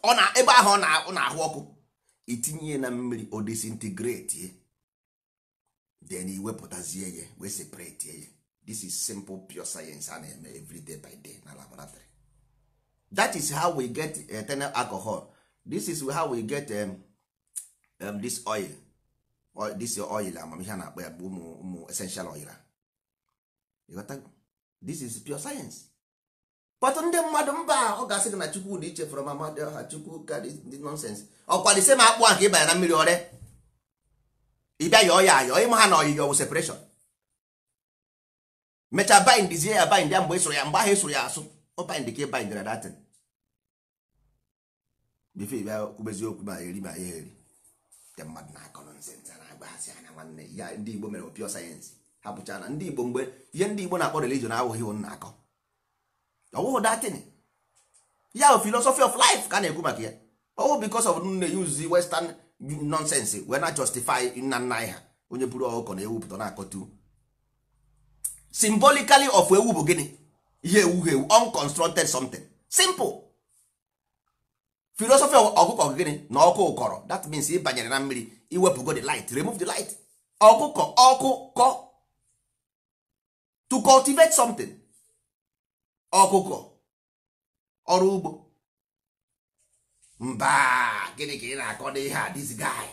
ọ na ebe ahụ ọ na-ahụ ọkụ itinye na mmiri o disintegrate then iwepụtazie ya we separate ya this is simple pure science a na-eme everyday by day na laboratory that is how we get eternal eh, alcohol this is how we get um, um, this oil or this oil amamihe a na-akpọ ya bụ ụmụ essential oil a this is pure science kpọtụ ndị mmadụ mba ọ ga-asị gị na chukwu dị iche fọrọ mama dị ọha chukwu ka dị nọnsens ọkwa dị sema akpụ ahụ ịbanye na mmiri ọrịa ịbịa yọọ ya ayọ ịma ha na ọyịyọ wụ separeshọn mechaa baindizie ya baind ya mgbe ịsụrụ ya mgbe ahụ ịsụrụ ya asụ ọ baind ka ịbaindra datin Bifo ịbịa kwubezi okwu ma eri ma ya eri ndị mmadụ na-akọ nọnsens a na-agbaghasị anya nwanne ya ndị igbo mere opio sayensị ha pụcha na ndị igbo mgbe ihe ndị igbo na-akpọ religion ahụghị na-akọ ọwụhụ datin ya philosophy of life ka na-ekwu maka ya ọwụ because of nne use western nonsense wee na justify nna nna anyị ha onye buru ọkụkọ na ewupụta na-akọtu symbolically of ewu bụ gịnị ihe ewu ewu unconstructed something simple philosophy of ọkụkọ gịnị na ọkụ ụkọrọ that means ịbanyere banyere na mmiri iwepụgo the light remove the light ọkụkọ ọkụkọ to cultivate something ọkụkọ ọrụ ugbo mba gịnị ka ị na-akọ n'ihe a this guy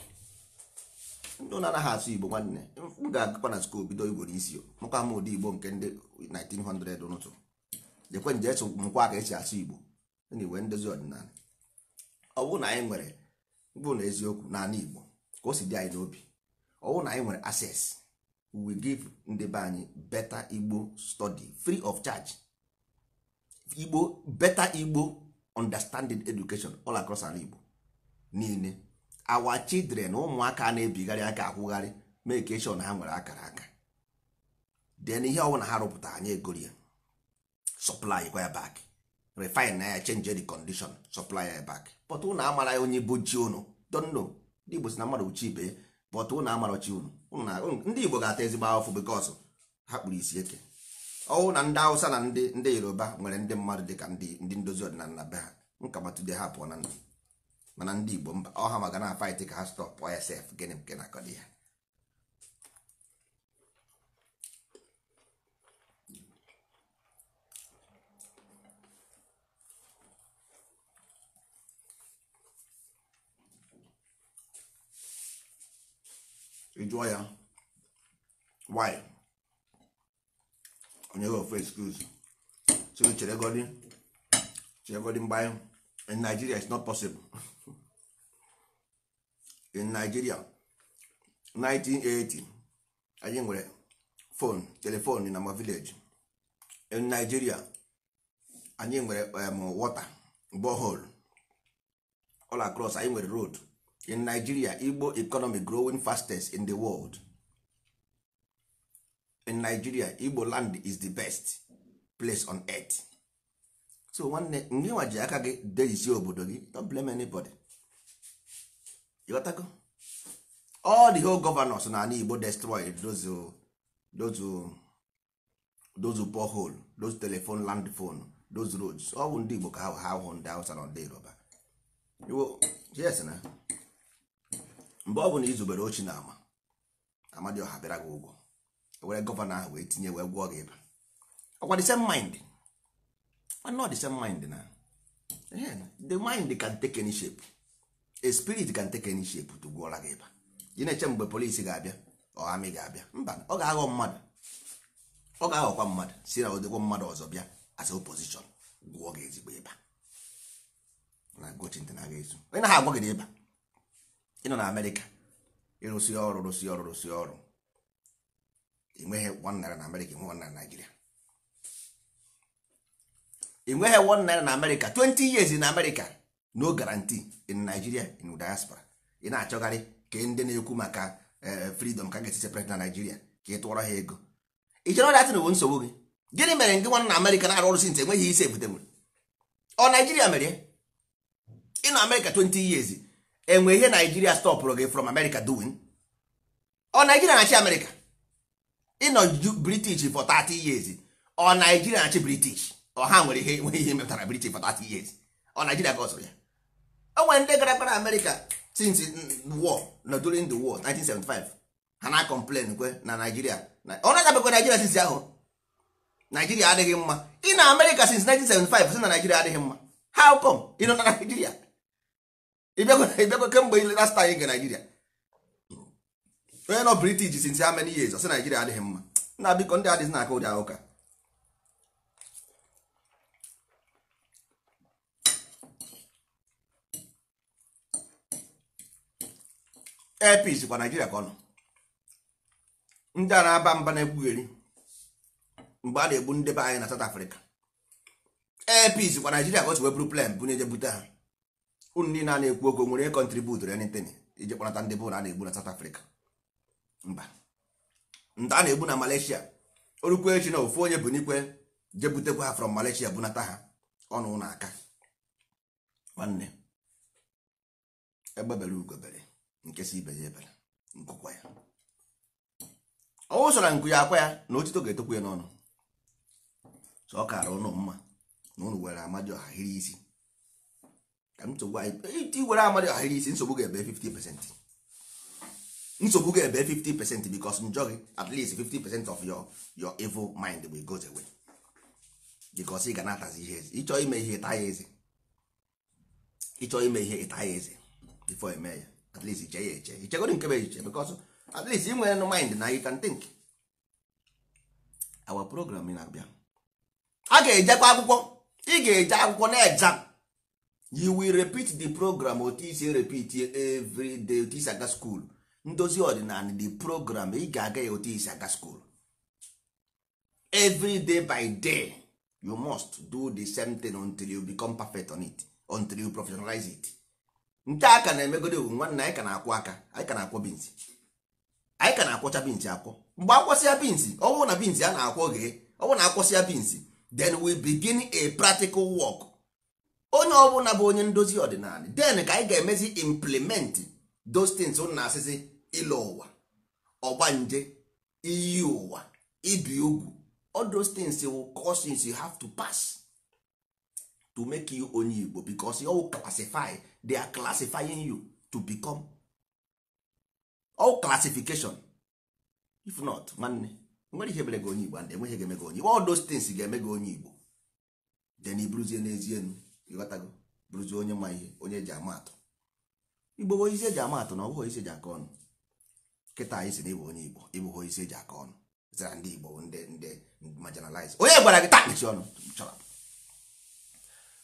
ndị ụlọ anaghị asụ igbo nwanne m ga-agụkwa na skuul bido igbo n'isi mụkwa m ụdị igbo nke ndị 1900 ụtụtụ jekwe nje esu mkwa ka esi asụ igbo na iwe ndozi ọdịnala ọ bụrụ na anyị nwere bụ na eziokwu n'ala igbo ka o si dị anyị n'obi ọ bụrụ na anyị nwere access we give ndị be anyị better igbo study free of charge igbo better igbo understanding education all across ala igbo niile our children ụmụaka na-ebigharị aka akwụgharị mekeshon ha nwere akara aka then ihe ọbụla ha rụpụta anyị egori ya supply gwa ya back refine na ya change the condition supply ya back but ụnụ amara ya onye bụ chi ụnụ don't ndị igbo si na mmadụ uchi ibe ya ụnụ amara chi ụnụ ndị igbo ga-ata ezigbo ahụfụ because ha kpụrụ isi eke ọwụ na ndị Hausa na ndị Yoruba nwere ndị mmadụ dị ka ndị ndozi ọdịnala be ha nkamatude ha pụọ na ndị Igbo mba ọha maka na fight ka ha ya sf gịnị nke na-akọdị ya ị ya why onye ofu excuse so cheregodi cheregodi mgbe in Nigeria is not possible in Nigeria 1980 anyị nwere phone telephone na ma village in Nigeria anyị nwere um, water borehole all across anyị nwere road in Nigeria Igbo economy growing fastest in the world in nigeria igbo land is the best place on earth so nwanne ndị nwa ji aka gị dejisi obodo gị don't blame anybody ịghọtago all the whole governors na ala igbo destroyed those uh, those uh, those borehole those telephone land phone those roads ọ bụ ndị igbo ka ha hụ ndị hausa na ndị yoruba yes na mgbe ọ bụ na izubere ochi na ama amadioha bịara gị ụgwọ were gọvanọ ahụ wee tinye wee gwọọ gị ịba ọkwa the same mind not the same mind na the mind can take any shape a spirit can take any shape to gwọra gị ịba ị na-eche mgbe polisi ga-abịa ọhamị ga-abịa mba ọ ga-aghọ mmadụ ọ ga-aghọkwa mmadụ si na odịgwo mmadụ ọzọ bịa as opposition gwụọ gị ezigbo ịba na gochinte na aga ezu onye ha agwa gị ịba ị nọ na amerịka ịrụsị ọrụ rụsị ọrụ rụsị ọrụ enweghị one naira na amerịka enwe one naira na naijiria enweghị one naira na amerịka 20 years in amerịka no guarantee in nigeria in diaspora ị na-achọgharị ka ndị na-ekwu maka eh, freedom ka ga-esi separate na naijiria ka ị tụọrọ ha ego ị chere ọrịa tinụ bụ nsogbu gị gịnị mere ndị nwanna amerịka na-arụ ọrụ sint enweghị isi ebute nwere ọ naijiria mere ị nọ amerịka 20 years enwe ihe naijiria stọpụrụ gị from amerịka doing ọ naijiria na-achị amerịka ịnọ british for 30 years ọ naijiria na-achị british ọ ha nwere ihe nwere ihe metara british for 30 years ọ naijiria ka ọ ya o e nwere ndị gara gara America since war na during the war 1975 ha na complain kwe na naijiria ọ na-adabekwa naijiria since ahụ naijiria adịghị mma ị na America since 1975 si na naijiria adịghị mma how come ị nọ na naijiria ịbịakwa kemgbe last time ị ga naijiria onye nọ british since how many years asị naijiria adịghị mma nna biko ndị adịghị na-aka ụdị ahụka epis kwa nigeria ka ndị a na-aba mba na-egbugheri mgbe a na-egbu ndebe anyị na south africa epis kwa nigeria ka o wee bụrụ plen bunye je bute ha unu niile a na-ekwu okwu nwere kontribut anything ije kpọnata ndị bụ na a na-egbu na south africa mba nta a na-egbu na Malaysia orukwu echi na ofu onye bụ n'ikwe je butekwa ha from Malaysia bunata ha ọnụ na-aka nwanne egbebere ugobere nke si ibe ya ebere nkụkwa ya ọwụsara nku ya akwa ya na otito ga-etokwa ya n'ọnụ so ọ kara ụnụ mma na ụnụ were amadi ọha hiri isi ka m nsogbu anyị iti were amadi ọha hiri isi nsogbu ga-ebe 50 pesentị nsogbu ga ebe 50 percent because njọ gị at least 50 percent of your your evil mind will go away because ị ga na ihe eze ịchọ ime ihe ịta ya eze ịchọ ime ihe ịta ya eze before eme ya at least iche ya eche ichegoro nke bụ iche because at least ị nwere mind na you can think our program na-abịa a ga-ejekwa akwụkwọ ị ga-eje akwụkwọ na exam you will repeat the program otu isi repeat every day otu isi aga school ndozi ọdịnala the program ị ga-aga ya otu isi aga school every day by day you must do the same thing until you become perfect on it until you professionalize it nke a ka na-emegodo ewu nwanne anyị ka na-akwụ aka anyị ka na-akwọ binsi anyị ka na-akwọcha binsi akwọ mgbe akwọsịa binsi ọwụ na binsi a na-akwọ oge ọwụ na akwụsịa binsi then we begin a practical work onye ọbụla bụ onye ndozi ọdịnala then ka anyị ga-emezi implement those things na asịsị ile ụwa nje iyi ụwa ibi ugwu all those things will causes you have to pass to make you onye Igbo because you all classify they are classifying you to become all classification if not nwanne nwere ihe mere gị onye Igbo and enweghị ga-eme onye Igbo all those things ga-eme gị onye Igbo then iburuzie n'ezie enu ịghọtago buruzie onye ma ihe onye eji ama atụ Igbo bụ ihe eji ama atụ na ọ bụghị ihe eji aka ọnụ kịta anyị si na onye igbo ịbụghị onye isi eji aka ọnụ zara ndị igbo ndị ndị marginalize onye gwara gị takpịchi ọnụ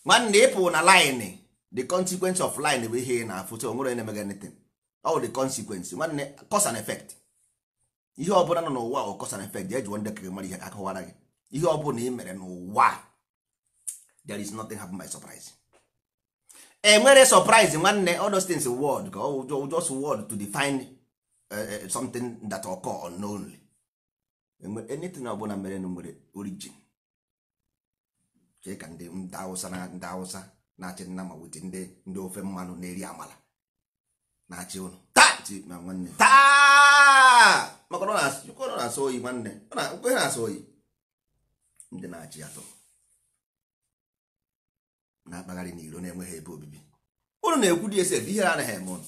nwanne ịpụ na line the consequence of line bụ ihe na-afụ so onwere na-emega anything ọ the consequence nwanne cause and ihe ọbụla nọ n'ụwa ọ cause and effect jụọ ndị kere mara ihe gị ihe ọbụla ị mere n'ụwa there is nothing happen by surprise enwere surprise nwanne uh, something that occur unknownly anything ọbụla mere na nwere origin ka ndị ndị awụsa na ndị awụsa na-achị nna ma wute ndị ndị ofe mmanụ na-eri amala na-achị ụnụ na nwanne maka ọ na-asọ oyi nwanne nkwe na-asọ oyi ndị na-achị atọ na-akpagharị n'iro na-enweghị ebe obibi Unu na-ekwu dị ese ihe anaghị eme ụnụ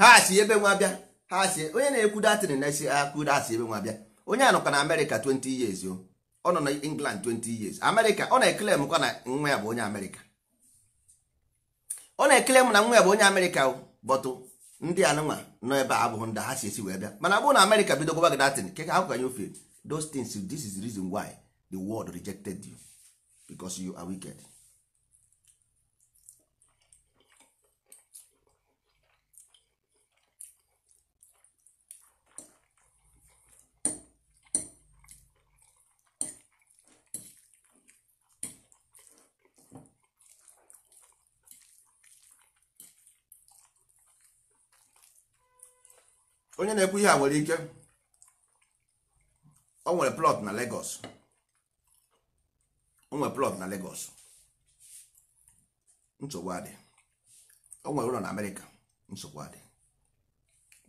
ha si ebe nwa bịa ha si onye na-ekwu datin na esi akụ asị ebe nwa bịa onye a nọkwa na amerịka 20 years o ọ nọ na england 20 years amerịka ọ na ekele m kwa na nwa ya bụ onye amerịka ọ na ekele m na nwa ya bụ onye amerịka bọtụ ndị anụnwa nọ ebe a abụghị ndị ha si esi wee bịa mana abụrụ na amerịka bido gụba gị datịn ke ha kwanye ofe those things this is the reason why the world rejected you because you are wicked. onye na-ekwu ihe a nwere ike o nwere plot na Lagos o nwere plot na Lagos nsogbu adị o nwere ụlọ na Amerịka nsogbu adị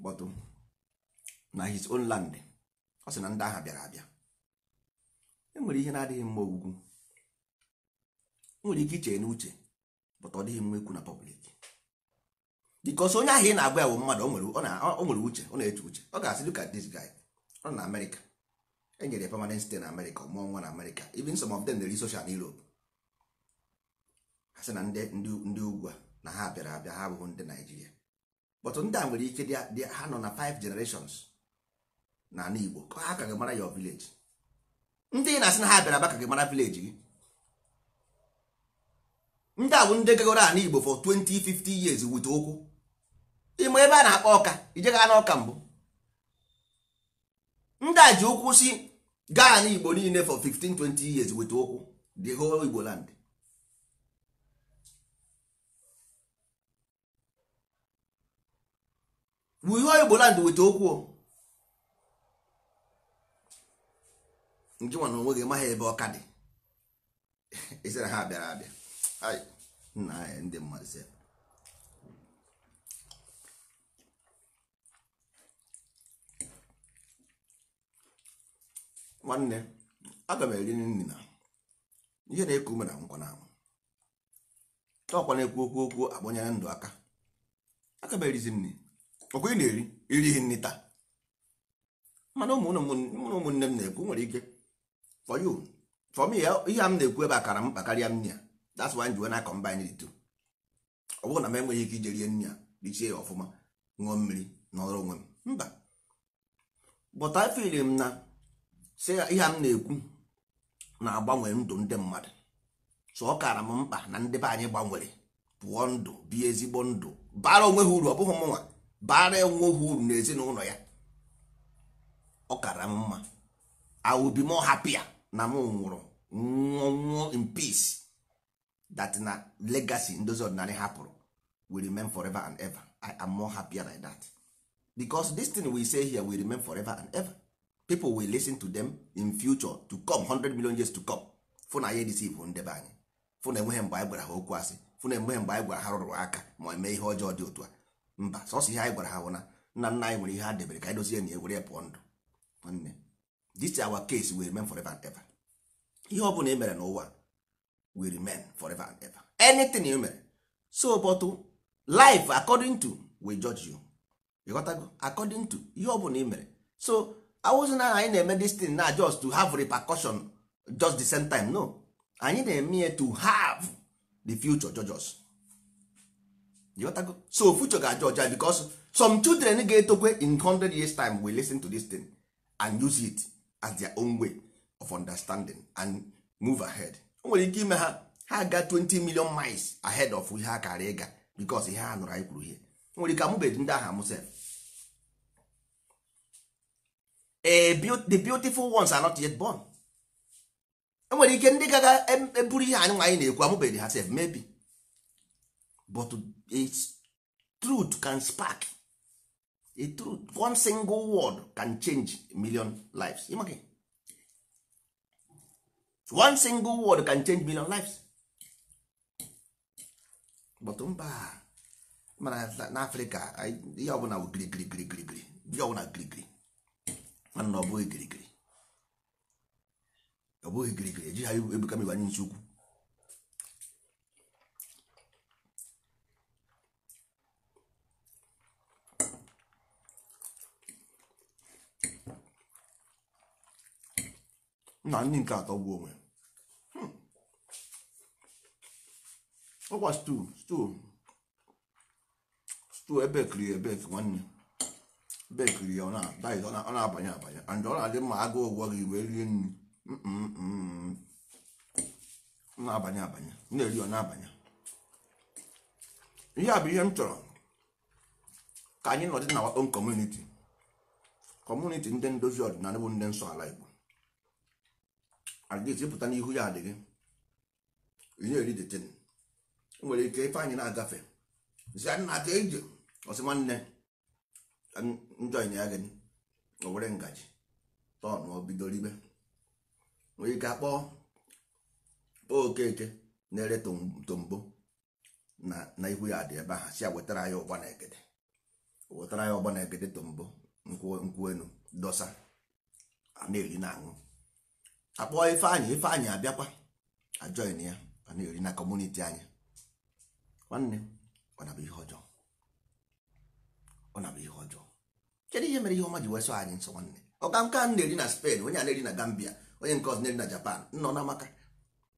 but na his own land ọ sị na ndị agha bịara abịa enwere ihe na-adịghị mma ogwugwu nwere ike iche n'uche but ọ dịghị mma ikwu na public bikos onye ahụ ị na-agwa ya bụ mmadụ o nwere uche ọ na-eche uche ọ ga-asị dị ka this guy ọ na amerịka enyere ya permanent site na amerịka ọmụọ nwa na amerịka even some of them na na europe ha sị na ndị ugwu a na ha bịara abịa ha abụghị ndị naijiria but ndị a nwere ike dị ha nọ na five generations na ala igbo ka ha ka gị mara your village ndị ị na-asị na ha bịara abịa ka gị mara village gị ndị a bụ ndị gagoro ala igbo for 20 50 years wit okwu ịma ebe a na-akpọ ọka ijegha n'ọka mbụ ndị a ji ụkwụ si gaa igbo niile for 15 20 years weta ụkwụ the whole igbo land whole igbo land weta okwu nke nwa na onwe gị maghị ebe ọka dị ezere ha bịara abịa nna ndị mmadụ nwanne aga m eri nri na ihe na-eku ume na nkwa na anwụ ọkwa na-ekwu okwu okwu agbanyere ndụ aka aga m erizi nri ọkwa ị na-eri irighị nri taa mana ụmụ ụmụnne m na-ekwu nwere ike for you for me ihe a m na-ekwu ebe a kara m karịa nri ya that's why njiwe na combine the two ọ bụrụ na m enweghị ike ije rie nri a richie ya ọfụma ṅụọ mmiri n'ọrụ onwe m mba but I feel m na si ihe m na-ekwu na-agbanwe ndụ ndị mmadụ so ọ kara m mkpa na ndị be anyị gbanwere pụọ ndụ bi ezigbo ndụ bara onwe ha uru ọ bụghị mụnwa bara onwe ha uru na ezinụlọ ya ọ kara m mma I will be more happier na m nwụrụ nwụọ nwụọ in peace that na legacy ndozi ọdịnala hapụrụ will remain forever and ever I am more happier like that because this thing we say here will remain forever and ever people will listen to them in future to come hundred million years to come fụ na anyị edisivu ndebe anyị fụ na enweghị mgbe anyị gwara ha okwu asị fụ na enweghị mgbe anyị gwara ha rụrụ aka ma eme ihe ọjọọ dị otu a mba sọsọ ihe anyị gwara ha hụ na nna nna anyị nwere ihe ha debere ka anyị dozie na ewere ya pụọ ndụ nwanne this our case will remain forever and ever ihe ọ bụla e mere n'ụwa will remain forever and ever anything e mere so but life according to we judge you ịghọtago according to ihe ọ bụla e mere so awụzi na anyị na-eme destin na just to have repercussion just the same time no anyị na-eme ya to have the future judges so future ga-ajọja judge ah, some children ga-etokwe in 100 years time will listen to this thing and use it as their own way of understanding and move ahead o nwere ike ime ha ha ga 20 million miles ahead of ihe a kara ịga because ihe a nụrụ anyị kwuru ihe nwere ike amụbeghị ndị aha amụsef the beautiful ones are not yet born enwere ike ndị gaga eburu e ihe anyị anyị na-ekwu amụbeghị ha sef maybe but its truth can spark a truth one single word can change a million lives one single word can change million lives but mba mana n'afrịka ihe ọbụla bụ girigirigirigiri ihe ọbụla girigiri mana na ọ bụghị kirikiri ọ bụghị kirikiri eji ha ebuka m ibanye nsi ukwu na ndị nke atọ gbuo onwe hmm. ọkwa stu stu stu ebek rie ebek nwanne bekiri ya ọ na-abanye abanye and ọ na-adị mma agụ ụgwọ gị wee rie nri na-abanye abanye na-eri ọ na-abanye ihe a bụ ihe m chọrọ ka anyị nọdị na own kọmuniti community ndị ndozi ọdịnala bụ ndị nsọ ala Igbo adịghị ịpụta n'ihu ya adịghị na-eri detin nwere ike ife anyị na-agafe zi nna ka ije ọsị nwanne njọ ịnya gị o were ngaji tọn o bidoro ibe nwee ike akpọọ okeke na-ere tombo na ihu ya dị ebe ahụ si ya wetara ya ụgba na egede wetara ya ụgba na egede tombo nkwụ enu dọsa a na-eri na aṅụ akpọọ ife ife ifeanyị abịakwa ajọin ya a na-eri na kọmuniti anyị nwanne ọ na-abụ ihe ọjọọ ọ na bụ ihe ọjọọ kedu ihe mere ihe ọma ji wee anyị nsọ nwanne ọka nke na-eri na spen onye a na-eri na Gambia onye nke ọzọ na-eri na Japan nọ na amaka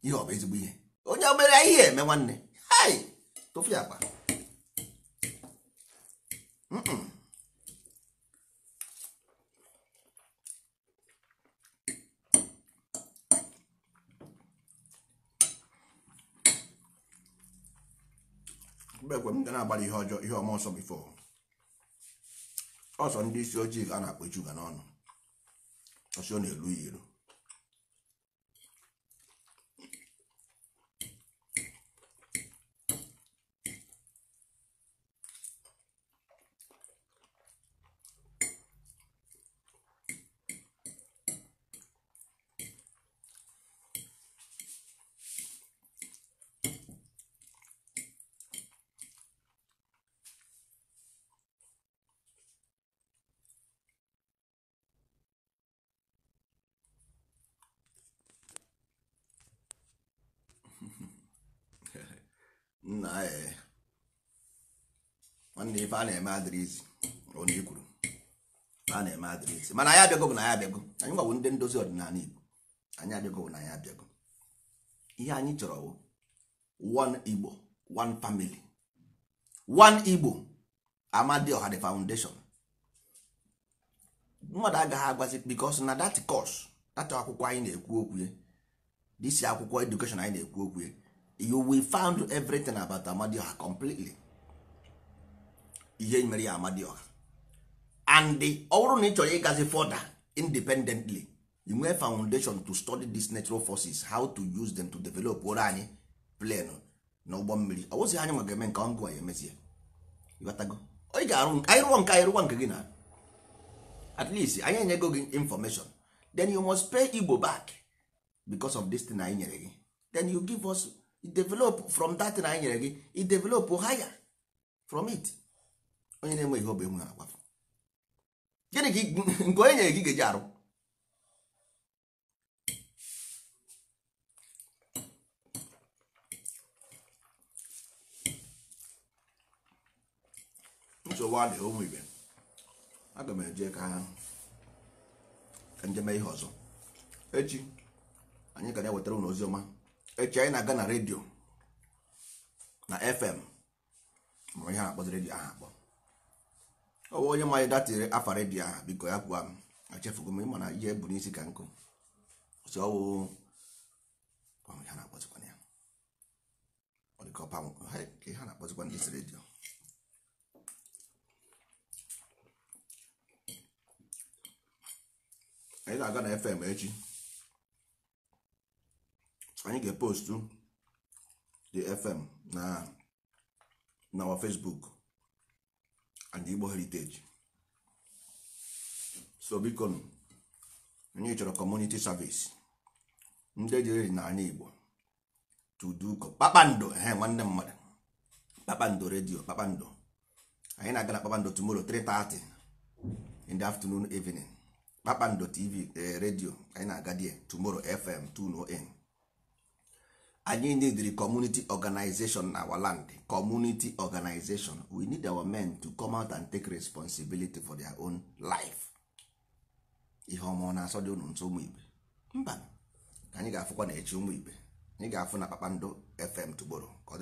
ihe ọ bụ ezigbo ihe onye obere ihe eme nwanne hai tụfu ya kpa mgbe ekwe m ga na-agbara ihe ọjọọ ihe ọma ọsọ bifo ọsọ ndị isi ojii ka a na-akpọ chuga n'ọnụ ọsọ ọ na-elu ya elu nna nwanne ife a na-eme eh. adịrịzi onye i kwuru a na-eme adịrịzi mana anyị abịago bụ na anyị abịago anyị gwawo ndị ndozi ọdịnala igbo anyị abịago bụ na anyị abịago ihe anyị chọrọ bụ one igbo one family one igbo amadioha the foundation mmadụ agaghị agwazi because na that course that akwụkwọ anyị na-ekwu okwu this akwụkwọ education anyị na-ekwu okwu you will found everything about amadioha completely ihe mere ya amadioha and ọ bụrụ na ị chọrọ ịgazi fọda independently you nwee foundation to study these natural forces how to use them to develop ụra anyị plan na ụgbọ mmiri ọ wụzi anyị nwa ga-eme nke ọngụ ya emezie ị ga-arụ anyị rụọ nke anyị rụọ nke gị na at least anyị enyego gị information then you must pay Igbo back because of this thing anyị nyere gị then you give us develop from that thing anyị nyere gị i develop higher from it onye na-enwe ihe ọbụ enwe agwafụ gịnị ka nke onye nyere gị ga-eji arụ nsogbu a na ụmụ ibe aga m eje ka njem ihe ọzọ echi anyị ga na-ewetara ụlọ ozi ọma echi anyị na-aga na redio na fm ma ihe akpọzi redio ahụ akpọ ọwa onye ma anyị afa redio ahụ biko ya kwa m m ịma na ihe bụ n'isi ka nkụ si ọwụ na ha na ndị isi redio anyị na-aga na fm echi anyị ga-epostu the fm na na our facebook and igbo heritage so biko anyị chọrọ community service ndị jere na anyị igbo tuduko kpakpando ehe nwanne mmadụ kpakpando redio kpakpando anyị na-aga na kpakpando tomorrow 3:30 in the afternoon evening kpakpando tv eh, radio anyị na-aga die tomorrow fm 2 anyị neediri kọmuniti organization na our land community organization we need our men to come out and take responsibility for their own life ihe ọma na-asọ dị unu nso ụmụ igbe mba ka anyị ga-afụkwa na echi ụmụ igbe anyị ga-afụ na kpakpando fm tụgboro